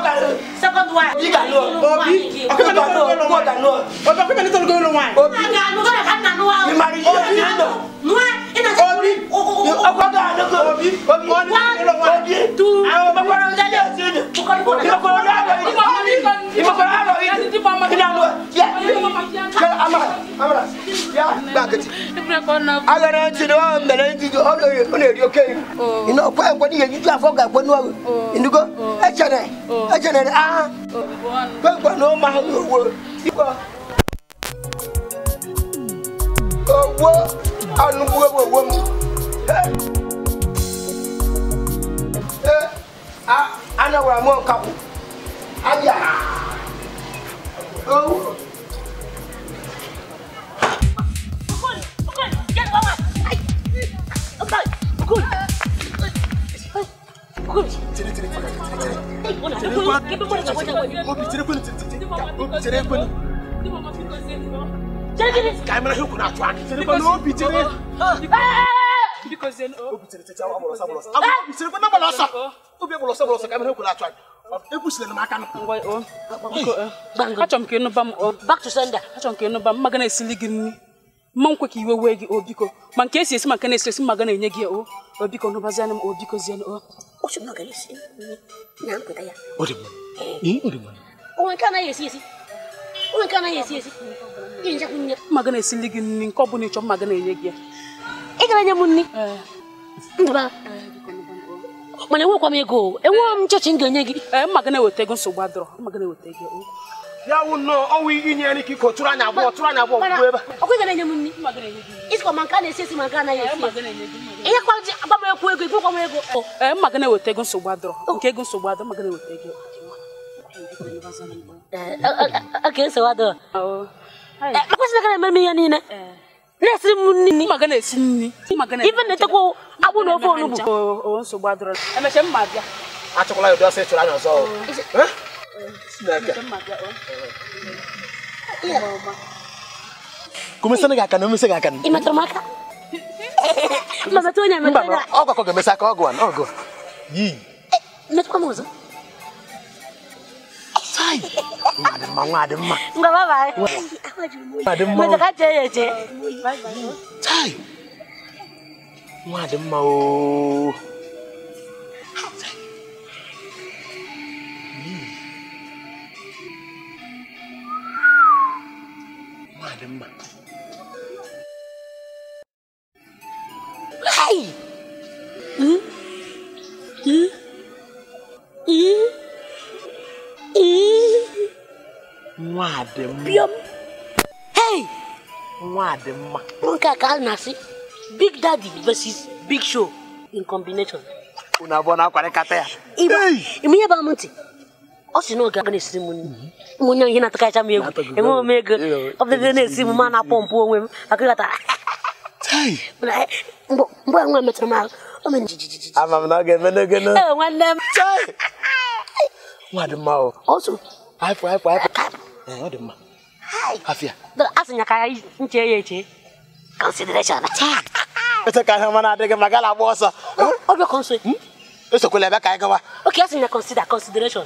second wife. obi ganu obi ọkọ ganu ọkọ ganu ọkọ pẹpẹ nítorí kí ló wáyé. obi ganu kọ́ ẹ̀ka nanu wa. ìmàlí yóò ní lọ. nua ina sọ obi ọkọ ganu kọ obi obi wọn ní lọ wáyé. obi tu àwọn ọmọ kọ́ra ọjà yóò sí ni. ìmọ̀kọ́ra ọjà yóò sí ni. ìmọ̀kọ́ra ọjà yóò sí ni. ìmọ̀kọ́ra ọjà yóò sí ni. amara amara ya gbàgede. agara ntị na ọ mere ntị ọ na-eri oke. ị na-ekwe ekwe n'ihe ejiji afọ ga-ekwe n'ụwa. indigo echere. Oh. ẹjẹ nẹ ah gbẹgbẹ ní o máa ń owó ìwọ owó anugbogbo owó mi anawura mu ọkàwọ ayà owó. Good. gobi cire cire cire cire cire cire kwa gobi cire kwani cire cire gobi cire kwani kai mana hukuna atwani cire kwani gobi cire because then oh gobi cire cire awa bolosa bolosa awa gobi cire kwani bolosa obi bolosa bolosa kai mana hukuna atwani ekwusila m aka achọrọ m ka ịnụba m achọrọ m ka ịnụba m mmaga na-esili gị nri mma nkwe ka iwe wee gị o biko ma nke esi esi ma nke na-esi esi ma ga na-enye gị o o biko n'ụbazianụ m o biko o mma ga na-esili gị nri nke ọ bụla ịchọ mma ga na-enye gị ya ị gara nye m nri mana enwekwa m ego enweghị m m ga-enye gị mma ga na-eweta ego nsogbu adọrọ mma ga na-eweta ego ya wụ nnọọ ọnwụ inye nri ka iko tụrụ anya abụọ tụrụ anya abụọ gwuo ebe ọkụ ga-enye m nri isikọ ma nke a na-esi esi ma nke anaghị esi ihe kwa ji agba m ekwu ego ibụkwa m ego ee eh, mma gị na-eweta ego nsogbu adọrọ oh. nke ego nsogbu adọrọ mma na-eweta ego oke eh, eh, nsogbu adọrọ oh. akwụsị na eme m ihe niile na-esiri m nri mma gị na-esi nri ibe na-etekwa na ofe onugbu oh, bịa ya ụdị ọsọ anya ọzọ kumesa ngaka no mesa ngaka imata maka mama tonya mama mama ogwa ko gemesa ka ogwa no ogwa yi metu kwa muzo sai adamma adamma nga baba adamma mata ka je je sai adamma o malin man kai nwa dị mma hey nwa dị mma nke ka a na-asị big daddy versus big show in combination unu abụọ na-akwarịkata ya ime ihe bụ amụ ntị ọ sị na oge aga na-esiri m nri mhm. ihe na-atakacha m egwu enweghị m ego ọ na-esi m ma na-akpọ mpụ onwe m akụghọtara ah, ah, ah, eh, mgbe nwa metụrụ m ahụ ama m na ọ ga-eme n'oge nwanne m nwa dị mma ọsụ haịpụ haịpụ haịpụ ọ dị mma afịa asịnya ka nche ya eche consideration ese ka ahịa na adịghị maka na agba ọsọ ọbịa kọnso hmm? esokwala ebe ka anyị gawa oke nya consider consideration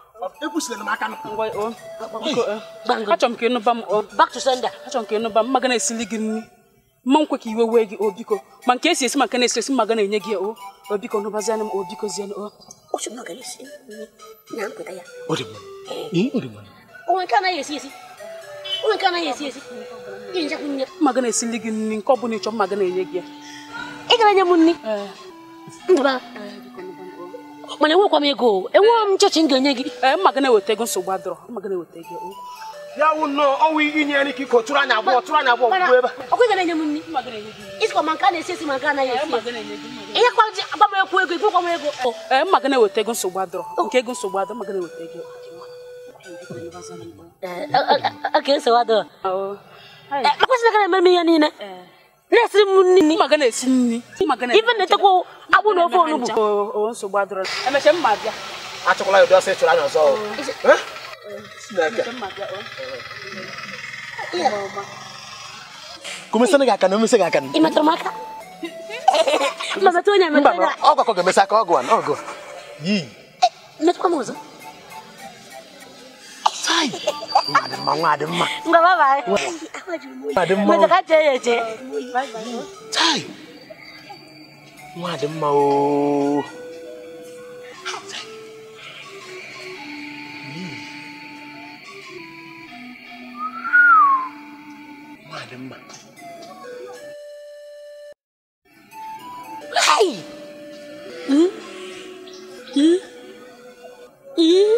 achọrọ m ka ịnụba m ka eh. ịnụba m na-esili gị nri mma eh. nkwe ka iwe wee gị ma nke esi esi ma nke na-esi esi enye gị o o biko m o biko zienụ o mmaga na-esili gị nri nke ọ bụla ịchọ enye gị ya ị mana enwekwa m ego enweghị m m ga-enye gị eh, mma eweta ego nsogbu adọrọ mma eweta ego ya wụ ọnwa inye nri ka iko anya abụọ tụrụ anya abụọ ebe enye m nri ma nke a na-esi esi ma nke anaghị eh, esi ihe kwa ji ekwu ego m ego ee eh, eweta ego nsogbu adọrọ oh. nke ego nsogbu adọrọ eweta ego oke nsogbu adọrọ oh. eme m ihe niile na akpụ na ofe onugbu nsogbu adịrọ emecha mma bịa achọkwala ya ụdị ọsọ ịchụrụ anya ọzọ kumesana gị aka na omesa gị aka ị metụrụ m aka mba ọ gwakọ ga-emesa aka ọgụ a na ọgụ yi eh, metụkwa m ọzọ sai ngadi mma ngadi mma ngaba bai ngadi mma ngadi mma ngadi mma ngadi mma ngadi mma ngoài đấm màu ừ. ngoài đấm màu này ừ ừ ừ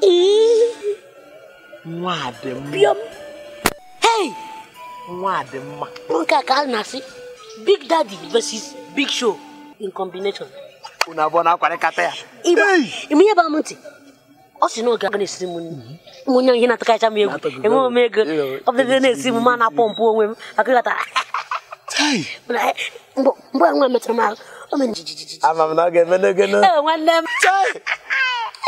ừ ngoài đấm biếm hey ngoài đấm mặt bữa cá cá nasi Big Daddy versus Big Show in combination. Unabona akwarekata ya. Iba, imiye ba mti. Osi no ga n'esiri mu ni. Munya yena takacha mu egu. Emu mu egu. Obede n'esiri mu mana pompu onwe mu. Akata. Tai. Eh, mbo mbo anwa metra ma. Ome njijiji. Ama na ga mene gena. Eh wanne. Tai.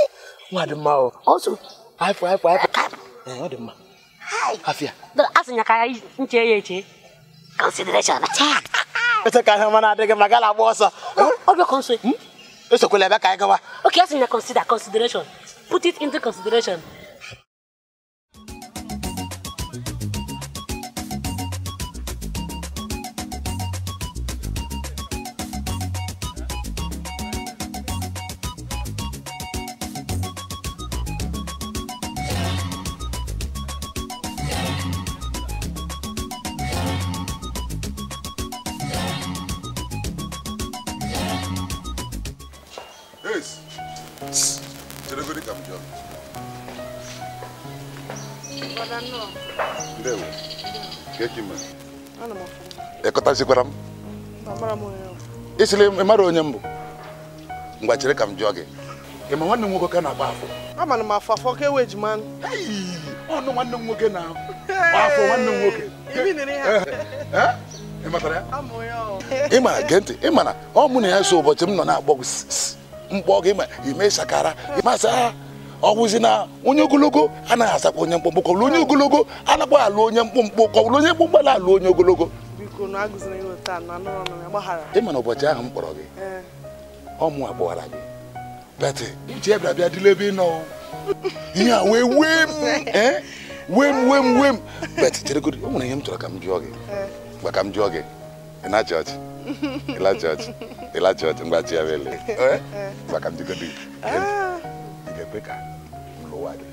E, wadi ma o. Also. Haipo haipo haipo. Eh wadi ma. Hi. Afia. Asinya kaya nche yeche. Consideration. Tai. esekara ihe mana adịghị mma gala agba ọsọ esokwala ebe ka anyị gawa okay asị na consider consideration put it into consideration amazikwara m ịsịrị mara onye mbụ ngwa chere ka m jụọ gị ịma nwanne m nwoke ka na-agba afọ amara m afọ afọ ka ewe ejima ọnụ nwanne m nwoke na afọ nwanne m nwoke ị mara eh, eh, eh, gee ntị ị ọ mụ na ya so ụbọchị m nọ na-agbọ mkpọ gị ma ime sakara masị ọgwụzi na onye ogologo anaghị asakwa onye mkpụmkpụ onye ogologo alụ onye mkpụmkpụ onye mkpụmkpụ alụ onye ogologo ị mana ụbọchị ahụ m kpọrọ gị ọmụ kpọwara gị beti uche bịa bịa dịla ebe ị nọ ihe a wee wee m <laughs> eh? wee m wee m wee m beti cheregodi o nwere ihe m chọrọ ka m jụọ gị mgbe ka m jụọ gị ịna jọji ịla jọji ịla jọji mgbe ji ya bụ ele mgbe eh? ka m jụgodi eh? ị ga-ekwe ka m lụwa gị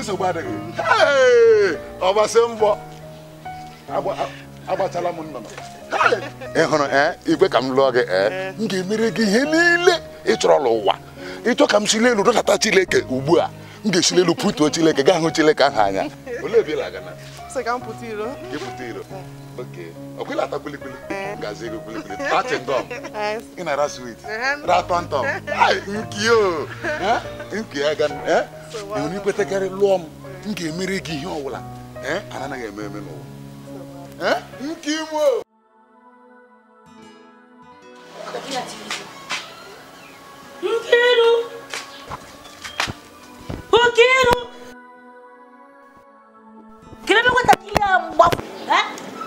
nsogbu adịghị ọgbasị mbọ agbachala m nnọnọ ị ee eh? igwe ka m lụọ gị ee eh? eh. m ga-emere gị ihe niile ị chọrọ ụwa ịchọ ka m si elu dọtata Chileke ugbu a m ga-esili elu pụtuo Chileke gaa hụ Chileke ahụ anya olee ebe lụọ m m ga-emere gị ihe ọbụla ee anaghị eme nke Nkiru! Nkiru! ebe eh?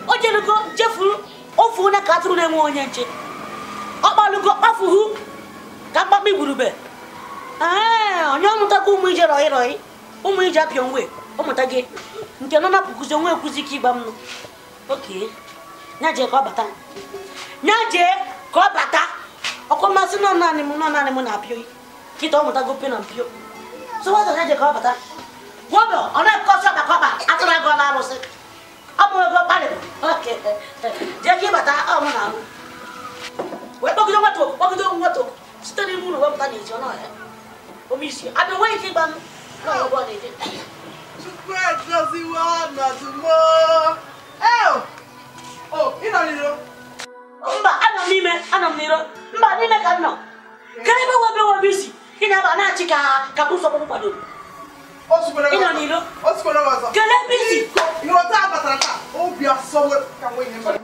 O jerugo jefuru ofu na-enwe onye nche. Ọ kpalugo kpafuhu ka mkpakpa igburube. Eh, onye ọmụtago ụmụ ije rọị rọị, ụmụ nwe, ọ gị. Nke nọ na onwe ekwuzi ike ịgba mnụ. Okay. Naje ka ọ bata. Naje ka ọ bata. Ọkụ mmasị nọ naanị m nọ naanị m na-apịo kịta ọ mụtago pe na mpio. So wazọ naje ka ọ bata. Gwọbọ ọ na-ekọsị ọba ka ọba atụrụ agụ ọla arụsị. Ọ mụrụ ego kparịbụ. Jee ka ịbata ọ mụ na-arụ. Wee kpọgide nwata oku kpọgide nwata oku site n'ime ụlọ wepụta n'ezi ọ n'ọhịa. Omisi abịa nwee ike ịgba m n'ọrụ ọgbọ na-eje. Chukwu edoziwo ọnọdụ moo. Eo! O, ị nọ n'iro? Mba, anọ m n'ime, anọ m n'iro. Mba, n'ime ka m na-aba na-achị ka ka bụ nsọgbụ kwadoro. Ị nọ n'iro? Kedu ebe isi? Ịghọta abatara taa, obi asọwe ka nwe ihe mere.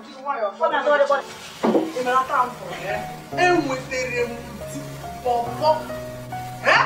Enwetere eh? e m di pọpọ. Eh?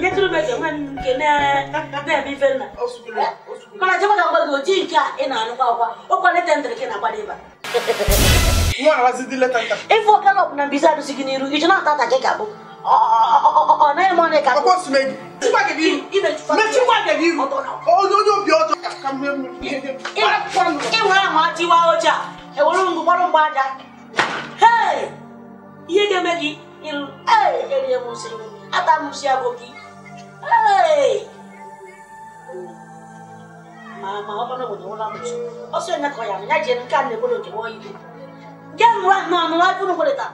Netulu bɛ jɛ ninnu kɛ ne bɛɛ b'i fɛn na. Kana jama ka bali o ji in kɛ e na nu ka o kɔni ne tɛ n terikɛ kɛ na ba de ba. Kuma ala si dile tan kan. E fo kala kuna bisa du sigi niru i tɛna ta ta kɛ ka bɔ. Ne ye mɔne ka. A ko sumɛ ci ma kɛ biiru. I bɛ ci ma. Mɛ ci ma kɛ biiru. O y'o y'o bi o to. Ka mɛ wala maa ti wa o ja. E wolo ngu balo ba ja. Hey, iye kɛ mɛ ki. Ee, e ni ye mun se. A ta mun se ki mama ọba na wọnyi wọla mọtò ọsọ ẹnyẹ kọ ya ẹnyẹ jẹni ká ní ebolo kẹwọ yìí jẹ nwa nọ nọ wá dúró wọlé ta.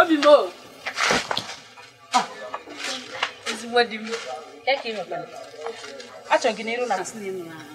obi mo ezigbo di m ya ka ị nọkwa achọ gị n'iru na asị na emu na ahụ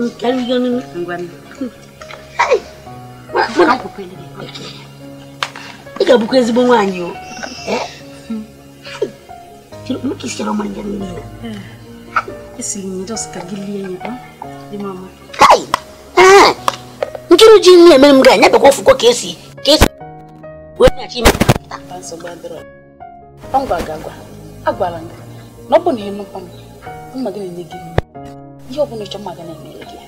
ị ga-abụkwa ezigbo nwaanyị nkiri ji nne emere m ga-anya bekwa ofụkọ ka esi ka esi wee nyachi ime agwara m na ọ bụ na ịnụkwa m mma gị na-enye gị yau bane can maganar ne rage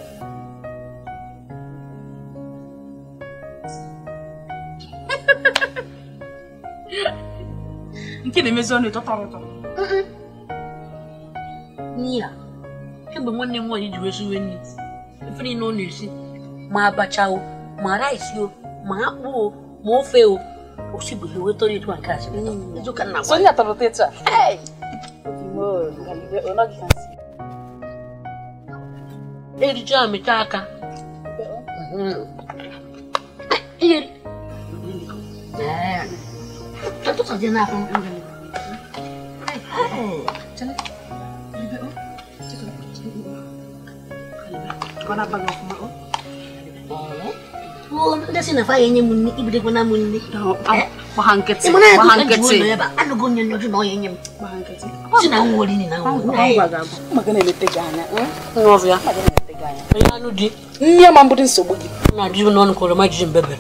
nke na-emezi ọnụ ịtọ tọrọ ụtọ n'iya egbe nwanne m nwaanyị jiri esiwe nri ife niile ọ na-esi ma abacha o ma rice o ma akpụ o ma ofe o osibuhi weta ọrụ ịtụ nke asịrị mm. ka nna gwa ya tọrọ teta eriji amịcha aka Nda sina fa yenye munni ibide gona munni. Bahangketse. Bahangketse. Ano gonya nyoto no yenye. Bahangketse. Sina ngoli ni na ngoli. Makanya imetega hanya. Ngovya. Magana onye anụ di nne ma mbụrụ nsogbu gị na adị n'ọnụ ka oroma jiji mbebe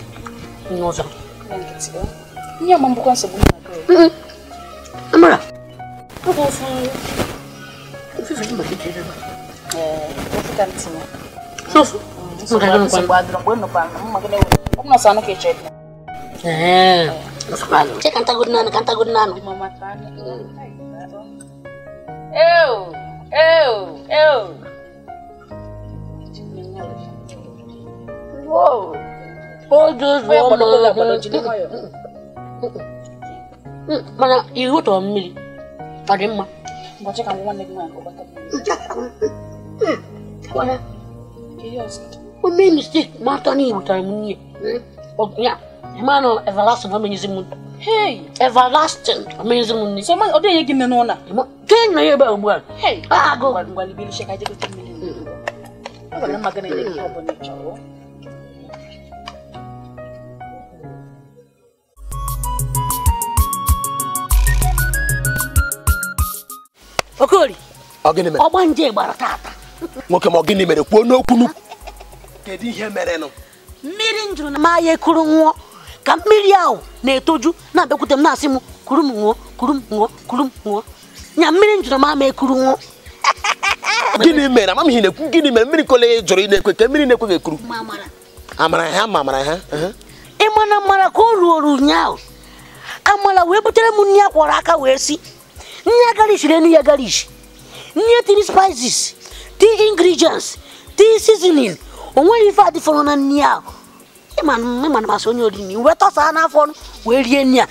n'ụzọ nne ma mbụkwa nsogbu amara oge ofu ofufe gị maka ike ebe sofu maka gị nkwa ee kantagodị naanị kantagodị naanị Ew, ew, mana ihu tọrọ mmiri ọ dị mma o mee mistake ma atọ na igbutara m n'ihe ya ma nọ everlasting ọ menyezi m ntọ Hey, everlasting, amazing money. So man, odo yegi nenu na. Ten na yeba ugbu a. Hey, ah go. Ngwali bi sheka je ko tumi. Ngwali magana yegi obo ni chawo. Okori ọgba nje gbara taata nwoke ma ọ gịnị mere kwuo n'okwunu kedu ihe mere merenụ mmiri njụrụ na maya ekuru nwụọ ka mmiri ahụ na-etoju na-abịakwute m na-asị m kuru m nwụọ kuru m nwụọ kuru m nwụọ nya mmiri njụrụ ma ama ekuru nwụọ <laughs> gịnị mere amam ihe na-ekwu gịnị mere mmiri kole jụrụ ị na-ekwe ka mmiri na-ekwe ekuru amara ha ma amara ha ịmana mara ka o ruo ụnyaahụ amara wee butere m nri akwọrọ aka wee si Nye garlic na nye garlic. Nye tiri spices, ti ingredients, ti seasoning. Onweghị fati adịfọrọ na nri ahụ. ịmana masị onye oriri wee tọsaa n'afọ wee rie nri a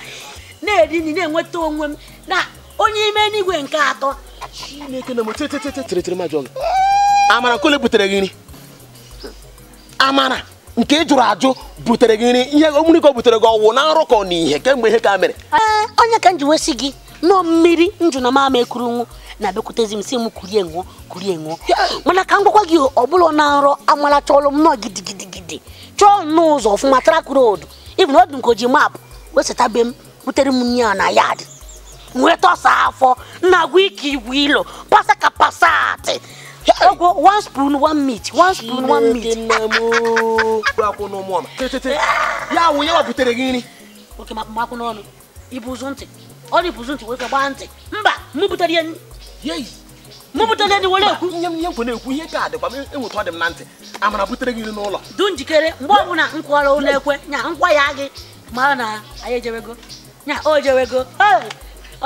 na-eri nri na-enweta onwe m na onye ime n'igwe nke atọ chineke na moteteteteteretere majọ gị amara kole butere gị nri amara nke ị jụrụ ajụ butere gị nri ihe omuri ka o butere gị ọwụ na nrụkọ na ihe kemgbe ihe ka mere onye ka m ji wesi gị n'o mmiri njụ na mama ekurunwu na-abịakwutezi m si m kurie nwụọ kurie nwụọ mana ka m gwakwa gị ọbụla na nrọ amalacha ọlụ m nọọ gidigidigidi chọọ nnọọ ụzọ ọfụma trak road ibn obi nkoji maapụ wesetabe m butere m nri na yad nweta ọsa afọ na-agwa ike igwe ilo pasa ka pasatị ọgwụ one spoon one meat one spoon one meat ya wụ ya wapụtere gị nri oke makwụ n'ọnụ ibu ụzọ ntị ọ dịbụzi ntị wee gbaa ntị mba mụpụtara ya mụpụtara ya were ekwu nye m ihe nkwe na-ekwu ihe ka dịkwa enwetụ ọ dị m na ntị amara butere gị n'ụlọ du njikere mgbe ọbụla nkwara ụlọ ekwe nya nkwa ya gị mara na anyị ejewego nya o jewego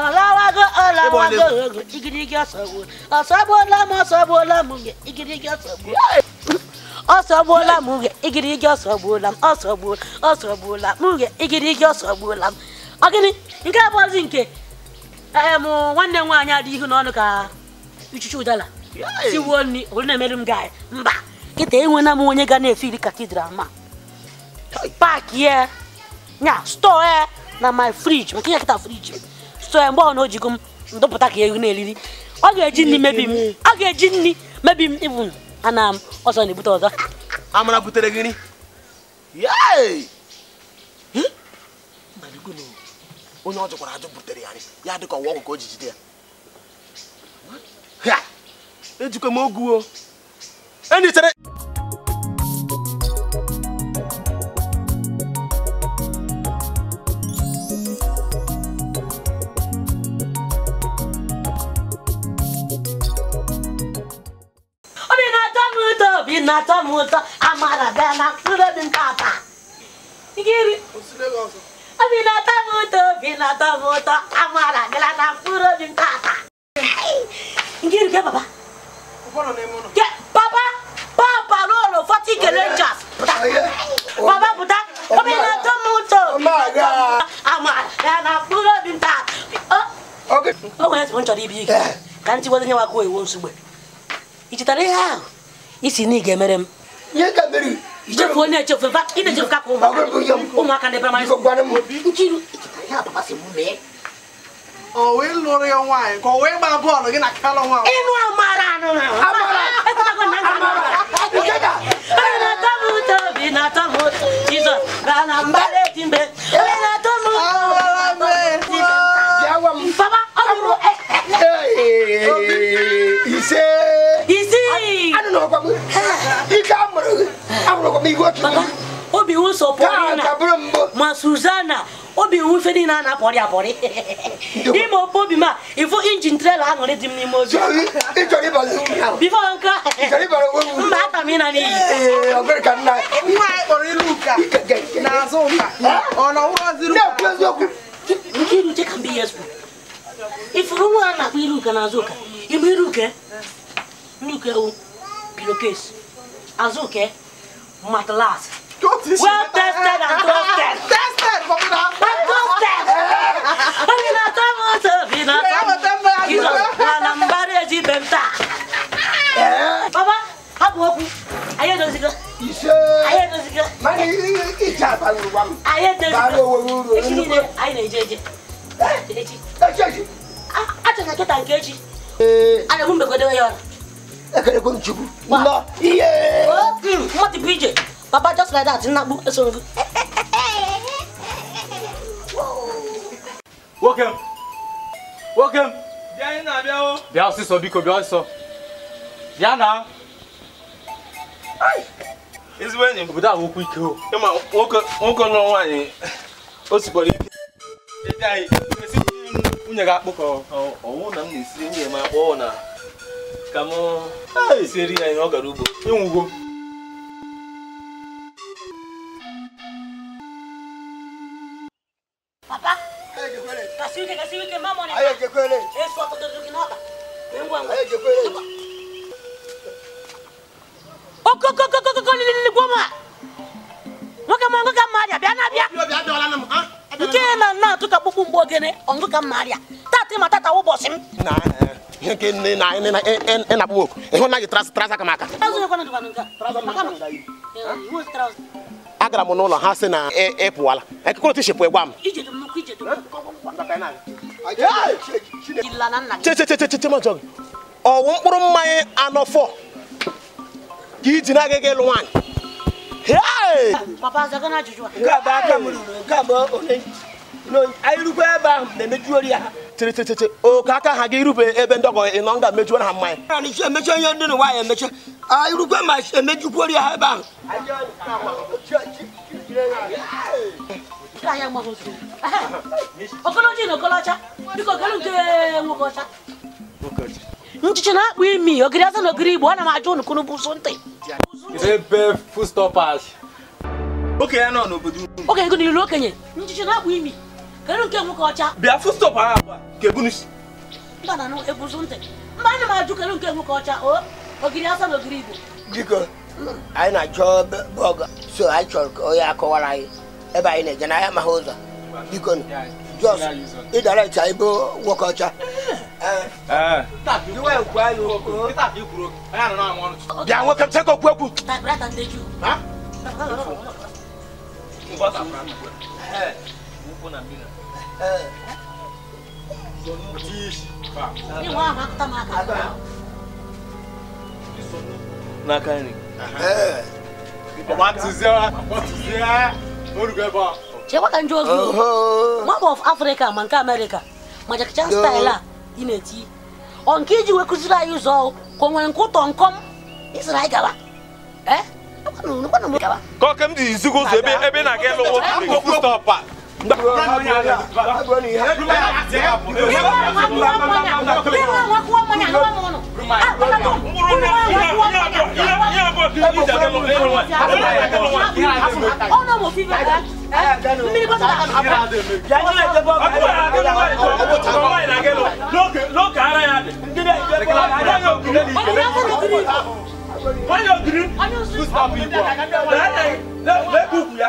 ọlawago ọlawago igirigi ọsọgbuo ọsọgbuola m ọsọgbuola m gị igirigi ọsọgbuo ọsọgbuola m gị igirigi ọsọgbuola m ọsọgbuola ọsọgbuola m gị igirigi ọsọgbuola m ọ gịnị nke abụọzi nke em nwanne m nwaanyị adị ihu n'ọnụ ka ichuchu ụdala siwuo nri olu na-emere m gaị mba kịta enwena m onye ga na-efiri katidral ma paaki ya nya stọọ ya na my friji maka ya kịta friji stọọ ya mgbe ọ na ojigo m ndụpụta ka ehu na-eriri ọ ga-eji nri mebi m ọ ga-eji nri mebi m ibụ ana m ọzọ na-ebute ọzọ amara butere gịnị onye ọ jụkwara ajụ butere ya ya dịka ọwa ọgwụ ka o ji jide ya ejikwa m oguo enyichere na-atọ m ụtọ amara bịa na mkpụrụ obi nke ata Vinata moto, vinata moto, amara gelana furo vintata. Ngiri ke baba. Ukono ne mono. Ke baba, baba lolo fati oh, kelenjas. Oh, baba buta, vinata oh, moto. Amara, amara gelana furo vintata. Okay. Oh, yes, one chori big. Can't you wasn't your way once away? It's a real. It's in Nigeria. Yeah, Kabiri ijefu ne ijefu va ine ijefu kako umwaka umwaka ne primary school nkiru oh, ya papa se mume ọwọ ịlụrụ ya nwaanyị ka ọwọ ịgba bọọlụ gị na kalọ nwa ịnụ amara anụ na amara na-atọ eh. m ụtọ obi na-atọ m ụtọ jizọs gaa na mbara eji mgbe onye na-atọ m ụtọ papa ọ bụrụ ise anụnọkwa m ike a mụrụ obi iwu na ma Suzana obi iwu niile a na-apọrị apọrị ime obi ma ịfụ injin trela aṅụrị dị m n'ime ozi ata m n'iyi mbe ihe ifuru nwa a na-akpọ iruka n'azụ ụka ịgba iruke nnuke o pillowcase azuke matelas well tested and trusted. tested for una. and trusted. Amina tamo to Amina tamo. Kizo na nambari ya jibemta. Eh? Baba, hapo hapo. Aye ndo zika. Ise. Aye ndo zika. Mani ija balu wam. Aye ndo zika. Balu wo wo. Echi ni aye na ejeje. Eh? Echi. Echi. Ah, acha na keta nkechi. Eh. Ana mumbe kodewa yona ekele ko nchugu ma iye. mo ti bije baba just like that nna gbu eso ngu. nwoke m nwoke m. bịa anyị na-abịa o. bịa ọsịsọ biko bịa ọsịsọ bịa na. ezigbo enyi m. obodo ahụ okwu ike o. ịma nwoke nwoke nọ nwaanyị o sikpọrọ ike. ebe anyị esi nwunye gị akpụ ọwụ na m na-esi nwunye m akpụ na ka mụ a ya ihe ọ gara ugbo ịnwụgo papa nke na na-atụ ka kpụkpụ mgbe ogene ọngụ ka mma arịa tata ma tata ụbọchị m ihe nke nne na ịnakpụ e- e- e nwoke ịhụ na gị traza aka m aka agara m n'ụlọ ha sị na ịpụwala ekekọrọ tishipụ gwa m chechechecheche ọwụ mkpụrụ mmanya anọ ka iji na agaghị ịlụ nwaanyị Ah. Oh, a rukwa ebe ahụ na-emejuori ya ha tịrịtịtịtị oke aka ha gị irube ebe ndọgọ ịnọ nga mejuoro ha mmanya emechi onye ndị ya emechi anyị ma emejukwuori ya ha ebe ahụ na nchichi na-akpụ imi ogiri aza na ogiri igbo ana m ajụ bụ ụzụ ntị okenye nọ n'obodo okenye nchichi na-akpụ imi kedu nke nwoke ọcha bịa fustop ha agba ka ebunisi mba na ebusu ntị mba ana m ajụ kedu nke nwoke ọcha o ogiri asa na ogiri igbo biko anyị na-achọ bọgụ so anyị chọrọ ka onye akọwara anyị ebe anyị na-eje n'ahịa amaghị ụzọ biko jos ịdara ịcha ebe nwoke ọcha bịa nwoke chekwa okwu okwu Hey n'aka nri chekwa ka njọ ozi nwamba of afrịka ma nke amerịka ma jakacha staịl a ị na-eti ọ nke iji wee kụziri anyị ụzọ ka o nwere nke ụtọ nkọm isiri anyị gaba kọkem dị izigo ụzọ ebe na-aga elu ụkwụ stọpa Why you agree? Who's happy? Let me cook ya.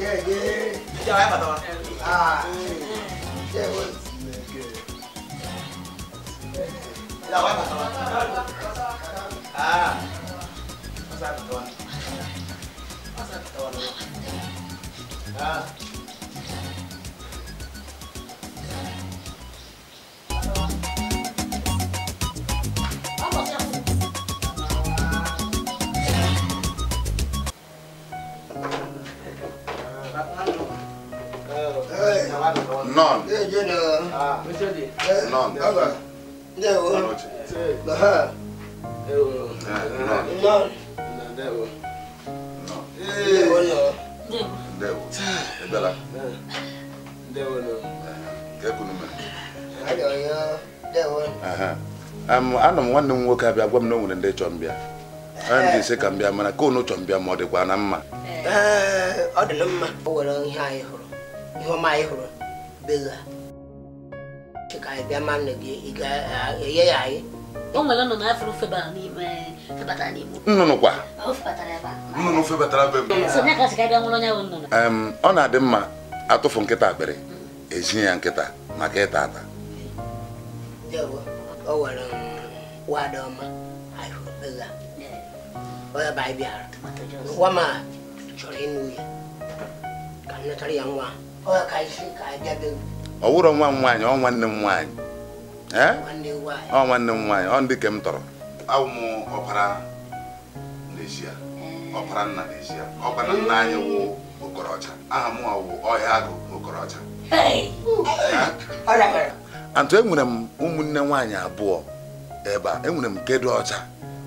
yeah. ìjà wa yà bàtà wa. ìjà wa yà bàtà wa. ọ̀sán bàtà wa. ọ̀sán bàtà wa lọ́wọ́. Non. Ah. Non. Allora. Devo. Ah. Devo. Non. Devo. No. Devo <sighs> no. Devo. È bella. Devo no. Che con me. Allora, devo. Ah. Um, ana m nwanne m nwoke abịa gwa m na o nwere ndị chọrọ mbịa ana m ga-ese ka mbịa mana ka unu chọrọ mbịa ma ọ dịkwa na mma ọ dị na mma o nwere ihe anyị hụrụ ihe ọma anyị hụrụ bega ka bịa ma nne gị ị ga-enye ya anyị o nwere nnụnụ afro febatara n'ime febatara n'ime nnụnụ kwa nnụnụ febatara be m ọ na-adị mma atụfu nkịta akpịrị ezinye ya nkịta maka ịta ata o nwere wada ọma onye bụ anyị bịara nwa m a chọrọ ịnụ ya ka m natara ya nwa ahụ ọ wụrụ nwa m nwaanyị ọ nwanne m nwaanyị ọ nwanne m nwaanyị ọ ndị ke m tọrọ awụ m ọbara n'ezie ọbara nna n'ezie ọbara nna anyị wụ okorocha aha m wụ ọhịa agụ okorocha antụ enwere m ụmụnne nwaanyị abụọ ebe a enwere m kedu ọcha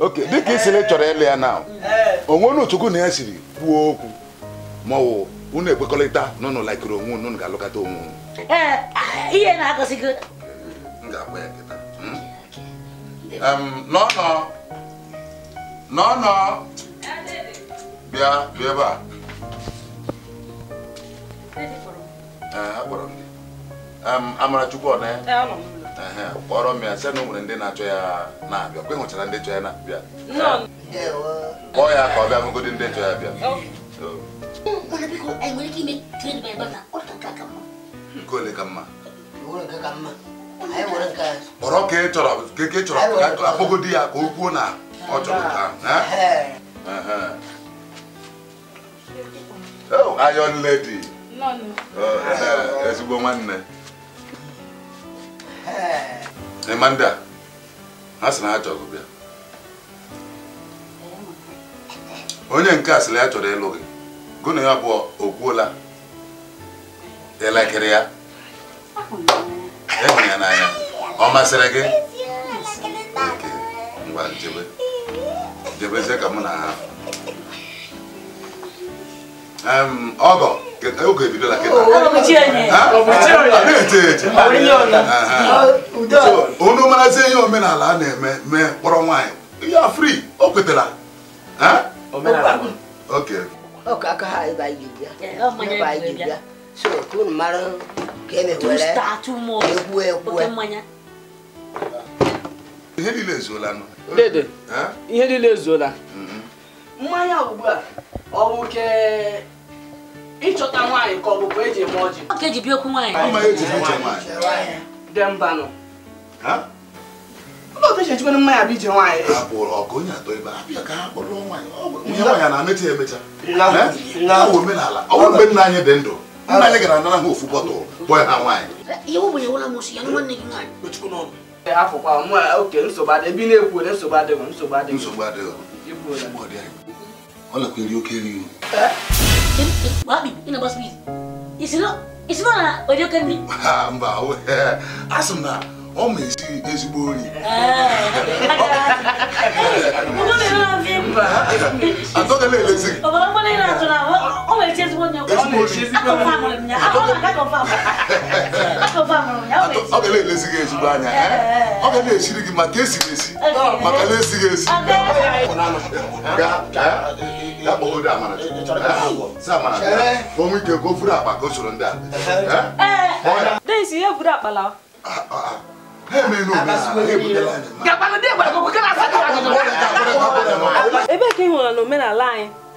oke dịka isi na chọrọ ịlụ ya na onwe unu na ya siri kwuo okwu ma ọwụ unu ekwekọrịta na unu onwe unu ga-alụkọta onwe unu eh, ah, na nọnọ eh, bịa kpọrọ m ya sị na o nwere ndị na-achọ ya na-abịa kwe hụchara ndị chọ ya na-abịa kpọọ ya ka ọ bịa ndị chọ ya bịa oh. mm, nke ole ka mma kpọrọ ka ị chọrọ ka ị chọrọ akpọgodi ya ka o kwuo na ọ chọrọ ka ayọn oh, oh, ezigbo nwanne ịma ndị a ha sị na ha chọrọ bịa onye nke a sịrị ya chọrọ ịlụ gị gụ na ya abụọ o kwuola elekere ya ehụ ya n'anya ọ masịrị gị oke ngwa jebe jebezie ka mụ na ha ọgọ oge ebidola kịta onye marazi ihe omenala a na-eme mee kpọrọ nwaanyị ya fri o kwetara e. ihe niile ezuola ihe niile ezuola mm-hmm. mmanya ugbu a ọ bụ nke ịchọta nwaanyị ka ọ bụkwa eji eme ọjị ka eji okwu nwaanyị e dembanụ ụlọ mmanya bụ ije nwaanyị omenala ọ bụrụ mgbe nna anyị dị ndụ nna anyị gara anara ha ofu bọtụl bọọ ha nwaanyị afọkwa oke nsogbu adịghị ebe na-ekwu nsogbu adịghị nsogbu adịghị All of you carry you. Bobby, you know, boss, please. It's not, it's not, or you can be. I'm bow. Ask him now. Oh, me, see, is boring. I thought I let you see. Oh, I'm going to ọ ga na-elezi gị ezigbo anya ọ ga na-esiri gị maka esiri esi maka na-esighị esi onwe ike ka o furu akpa ka o soro ndị a ebee ka ị hụrụ na omenala anyị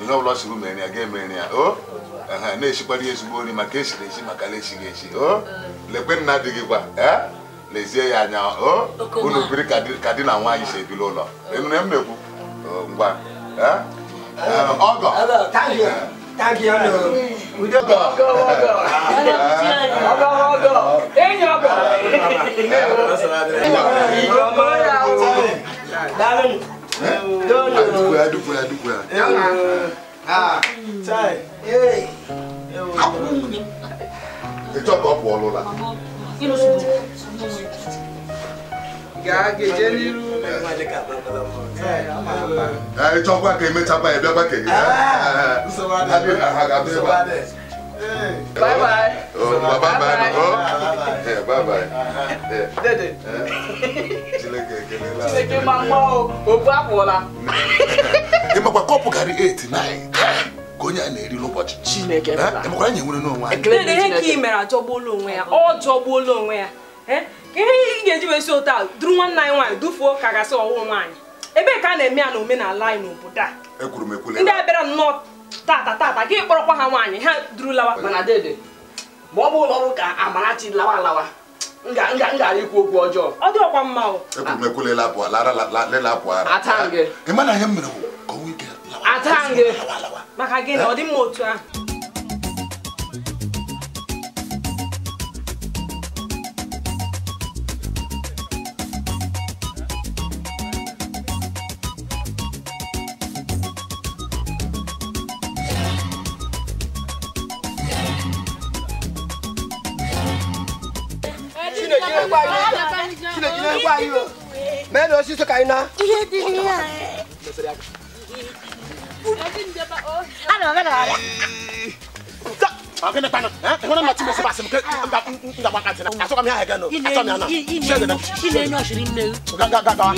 nnọọ ụlọ siri mere ya ga emere ya o na-esikwara ya ezigbo nri maka esiri esi maka na-esighị esi o lekwe nna dị gị kwa e? lezie ya anya o unu biri ka di na nwaanyị si ebili ụlọ enure m na-ekwu ngwa e? E, ọgọ Daalụ Ah, adukwara adukwara adukwara. ètò ọ̀pọ̀ ọ̀pọ̀ ọ̀lọ́la. ah. jẹ́ nínú. ètò ọ̀pọ̀ akẹ́yìn mẹ́ta báyìí Ah, ọ̀pọ̀ akẹ́yìn. Bye bye. Oh, bye bye. Bye bye. Oh. Yeah, bye bye. Dede. Eh? Chineke ekele. ma mma o, obu apụọla. Ịmakwa kọpụ karị 8 9 ka onye a na-eri n'ụbọchị. Chineke bịara. Ịmakwa anyị nwere n'onwe anyị. Dede ihe ka ị mere ajọgbuola onwe ya, ọ jọgbuola onwe ya. Ihe ị ga-eji wesi otu a duru nwanne anyị nwaanyị dufuo ka gasị ọwụ nwaanyị. Ebee ka a na-eme ya na omenala anyị n'obodo a? Ekwuru m Ndị a bịara nnọọ tata tata gị kpọrọkwa ha nwaanyị ha duru lawa mana dede ma ọ bụ ụlọ ọrụ ka Amarachi lawa lawa ikwu okwu ọjọọ ọ dịọkwa mma o atangị maka na ọ dị mma otu ahụ jina kwa hiyo. Kile jina kwa hiyo. Mendo sisi kaina. Ile dunia. Ana mwana wala. Akene pana, eh? Wana mati mbese basi mke nda wakati na. Asoka mi ha hega no. Asoka mi ana. Ile no shirin ne. Ga ga ga ga.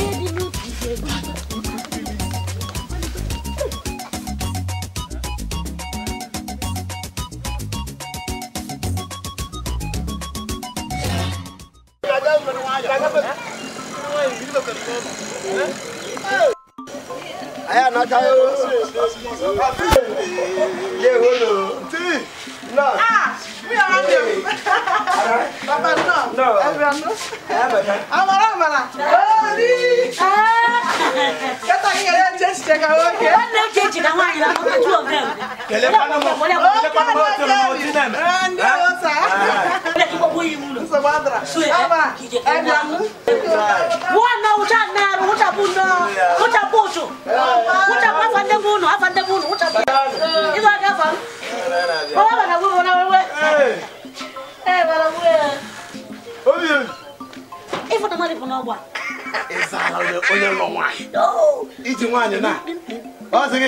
kaka yo ye holo ti no ah mi ara mi baba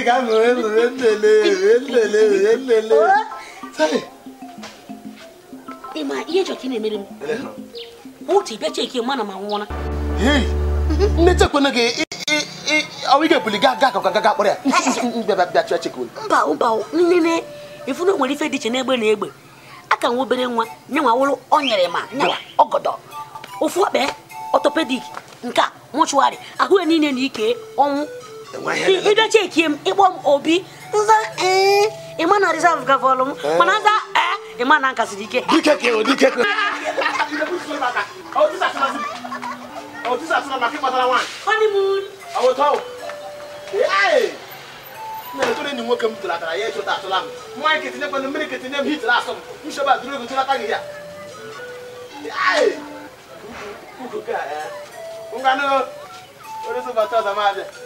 ka m wee were nlele were nlele were nlele ihe chọrọ na-emere m otu ịbịa ma nwụọla nne chekwena gị ọwụ ike buli gaa ya bịa mba mba nne ifu nwere ife dị iche n'egbe egbe aka nwa obere nwa nye nwa wụrụ ọ ofu nke a ahụ ya niile na ike ọnwụ ida ce kiem ibom obi nza eh ima na reserve ka volum mana za eh ima na nkasi dike dike ke o dike ke honeymoon awo taw eh nana to ni nwoke m tụrụ akara ya ịchụta atụla m nwaanyị ketinye mmanụ mmiri ketinye m hitụrụ asọ m nshọba duru ego tụrụ aka gị ya eh. ngwanụ onye sọba tọza m abịa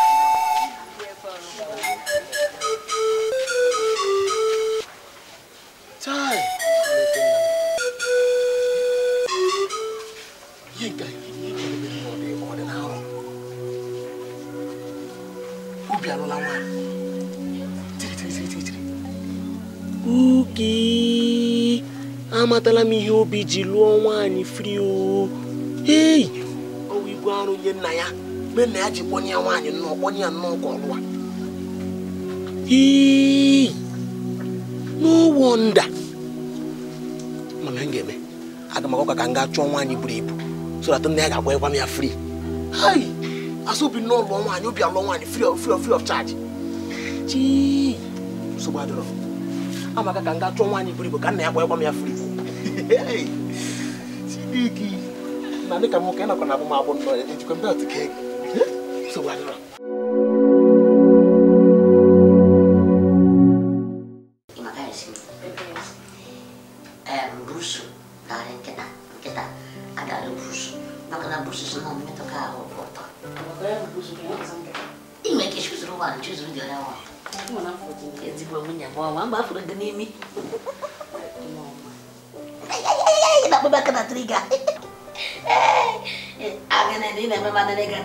akpatala m ihe obi ji lụọ nwaanyị frio ei ọwa igwe arụ nye nna ya mgbe nna ya ji kpọnye ya nwaanyị nnọọ kpọnye ya nnọọ ka ọ n'ụwọ nda mana ga-eme aga ka m gaa chọọ nwaanyị buru ibu so nna ya ga-agwanyekwa m ya fri ai asọbi nnọọ lụọ nwaanyị obi alụọ nwaanyị fri of fri of charge chi nsogbu adịrọ amaka ka m gaa chọọ nwaanyị buru ibu ka nna ya gwanyekwa m ya fri Chineke na dịka nwoke nakwa na abụmabụ nọ ejikwa mbe ọtụ ka ego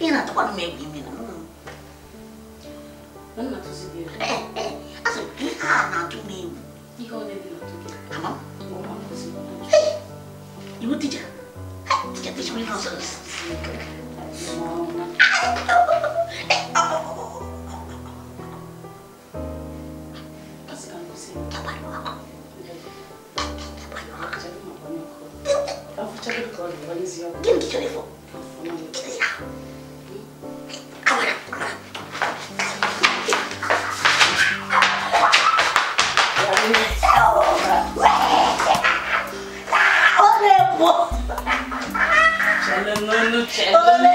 ina ta kwani mai gimi na wannan ta zube eh eh aso ki ha na tu mai bu ni ho ne bi na tu ki ama o ma ko si eh ibu tija tija tija mi no so Give me the telephone. Give me the telephone. Channel, no, no, channel.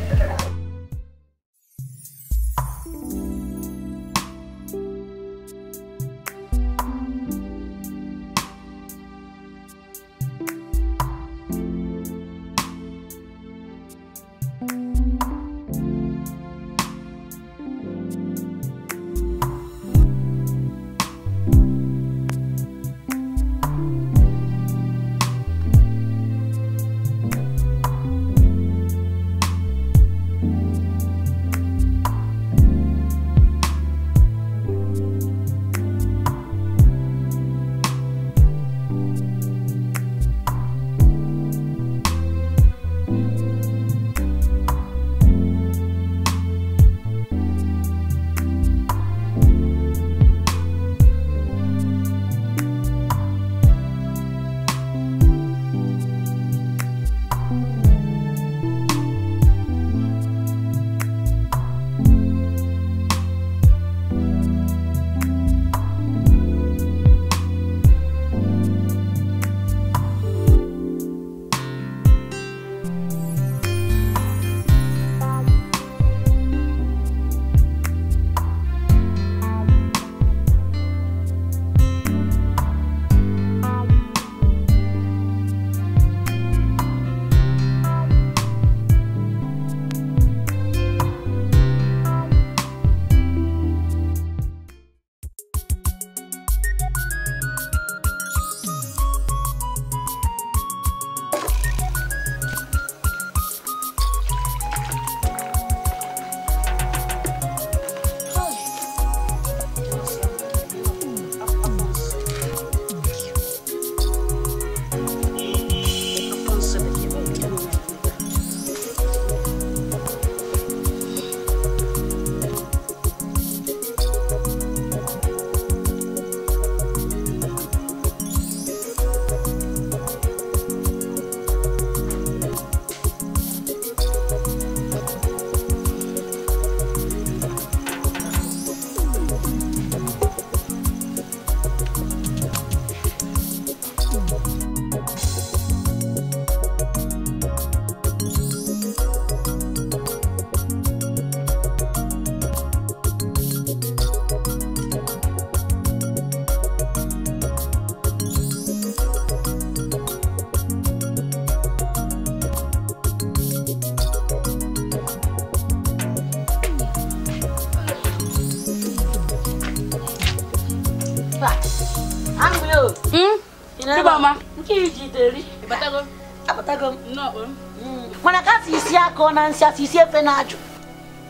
ọ na nsị isi efe na-ajụ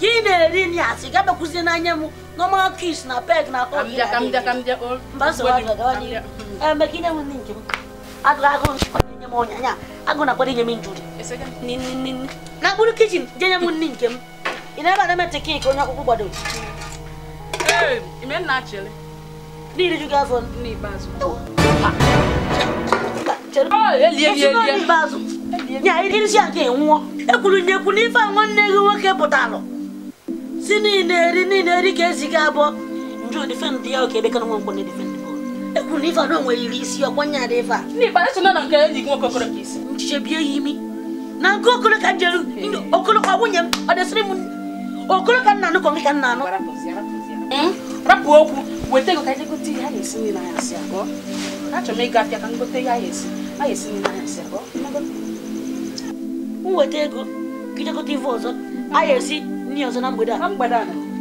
ka ị na-eri nri asị n'anya m na peg na akọ emeka eh, inye m nri nke m agụ agụ nye m agụ na akwado inye m njuri na mkpụrụ kichin na-ebe na emetị kik onye akwụkwọ gbado n'iri ju gị afọ irisi nke ekwuru nyekwu n'ife a nwanne gị nwoke pụtalụ si niile eri niile eri ka esi gị abụọ njụ ya oke ebe ka nwa ekwuru na ife a iri isi ọkwanye ada ife a nchiche bie ya imi na nke okoro ka ka nwunye m ọ m ka nna ka ka nna anụ hmm? rapụ okwu weta ego ka anyị gote ihe a esi ihe a m ego gị jekọta ọzọ a ga-esi n'ihe ọzọ na mgbede a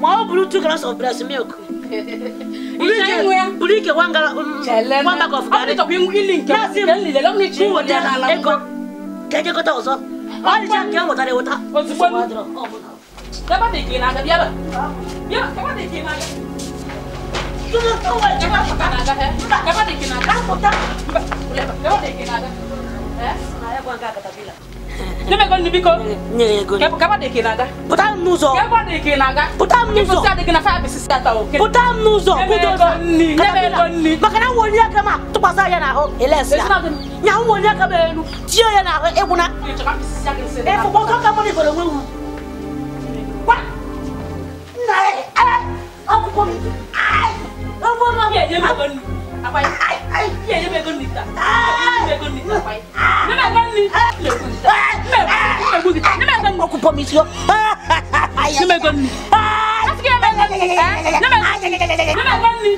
ma ọ bụrụ two gallons of breast milk <laughs> bụrụ ike mm, mm, one bag of garri na-asị m weta ego ka ejekọta ọzọ ọ dịcha e nke m wetara eweta Kapatid kinaga. Kapatid kinaga. Eh? Naya ko Deme goni biko. Nyere goni. Kepo kaba deke naga. Puta n'ụzọ. Kepo deke naga. Puta n'ụzọ. Kepo sa deke na fa bisi sa ta o. Puta n'ụzọ. Kudo na. Nyere goni. Maka na woni aka ma tụkwasa ya na ahụ elesi ya. Nya woni aka ma elu. Tie ya na ahụ egwu na. E fụkwa ka ka mọni bolo wewu. Wa. Na e ala. Akwụkwọ m. Ai. Ọmọ ma. Ye ye me goni. Akwai. Ai ai. Ye ye me goni ta. Ai. Yon mwen kon ni Ate ki mwen kon ni Yon mwen kon ni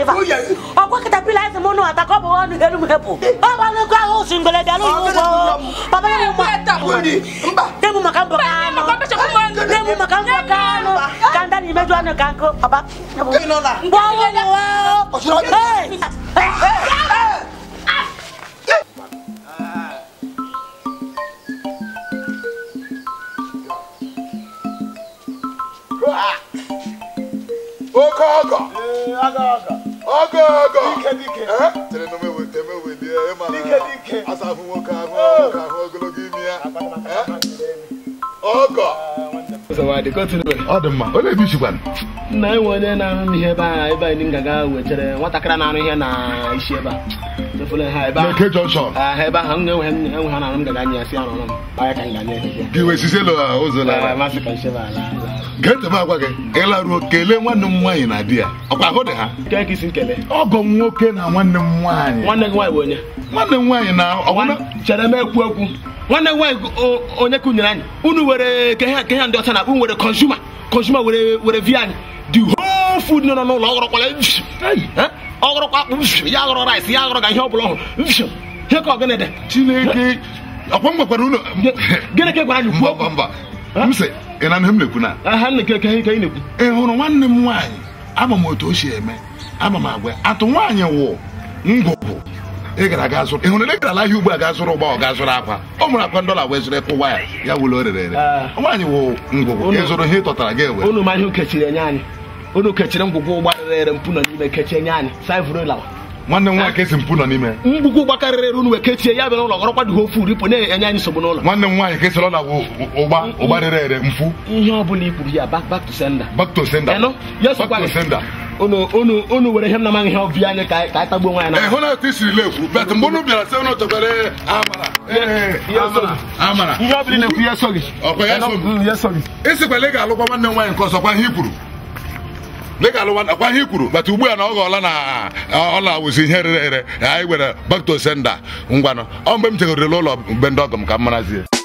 river ọkọ katapila ẹsẹ mọnu atakọ bọ wọn hẹnu hẹpọ ọba ní kó àwọn oṣù ngbẹlẹ bí alóyún wọ bàbá yẹn mú ma tẹmu maka bọ kánú tẹmu maka bọ kánú kanda ni mẹjọ ni kanko bàbá bọ wọn wọ. ọ dị mma onye bi chikwana nna enwe onye na-arụ ihe ebe a ebe anyị ngaga aga wetara nwatakịrị na-arụ ihe na isi ebe a ebe ahụ m na-enwe ha na-arụ m gaga nye ọrụ m ka ah, ala. ga agwa gị ịlaruo kelee nwanne m nwaanyị na di ya ọkwa ahụ dị ha ọgọ m nwoke na nwanne m nwaanyị nwanne m nwaanyị na chere m ekwu ekwu nwanne nwaanyị onye kunyere anyị unu were ke ha ndị ọcha na akpụ were consumer consumer were were anyị the whole nọ n'ụlọ ọghọrọkwa ọghọrọkwa akpụ ya aghọrọ rice ya aghọrọ ga ihe ọ bụla ọhụrụ ihe ka ọgịnị dị chineke ọkwa m gwakwara gịnị ka e gwara anyị kwuo mba atụ nwaanyị wụ ngwụ ị gara zụrụ ịhụrụ gara ahịa ugbu a ga zụrụ ụgba ọ ga akwa ọ mụrụ akwa ndọla wee zụrụ ịkwụ waya ya wụlụ o rere ere ah. nwaanyị wụ ngwụgwụ ị zụrụ ihe gị ewe unu ma ukechiri enye anyị unu kechiri ngwụgwụ ụgba rere mpụ nọ n'ime kechie enye anyị nwanne nọ n'ime mgbugwu gbakarịrị unu ya bịara ụlọ gọrọkwadughị ofu uripo na-enye anyị nsogbu n'ụlọ nwanne m nwaanyị kesịrị ọla ụgba ụgba rere ere mfu ihe ọ bụla ya to to unu were ihe m ihe ọbịa anyị ka anyị tagbuo nwaanyị na eh, hụ na etu isiri bet mgbe unu bịara sị eh, eh, amara ihe ọbụla na-ekwu ya soghị ịsịkwala ị ga-alụkwa nwanne nwaanyị nke ọzọ ihe i kwuru dịka alụwa akwa ihe kwuru bata ugbu a na ọ ghọọla na ọ na-awụzi ihe rere ere anyị were back to sender ngwanụ ọ mgbe m ụlọ mgbe ndị ọgọ m ka m marazie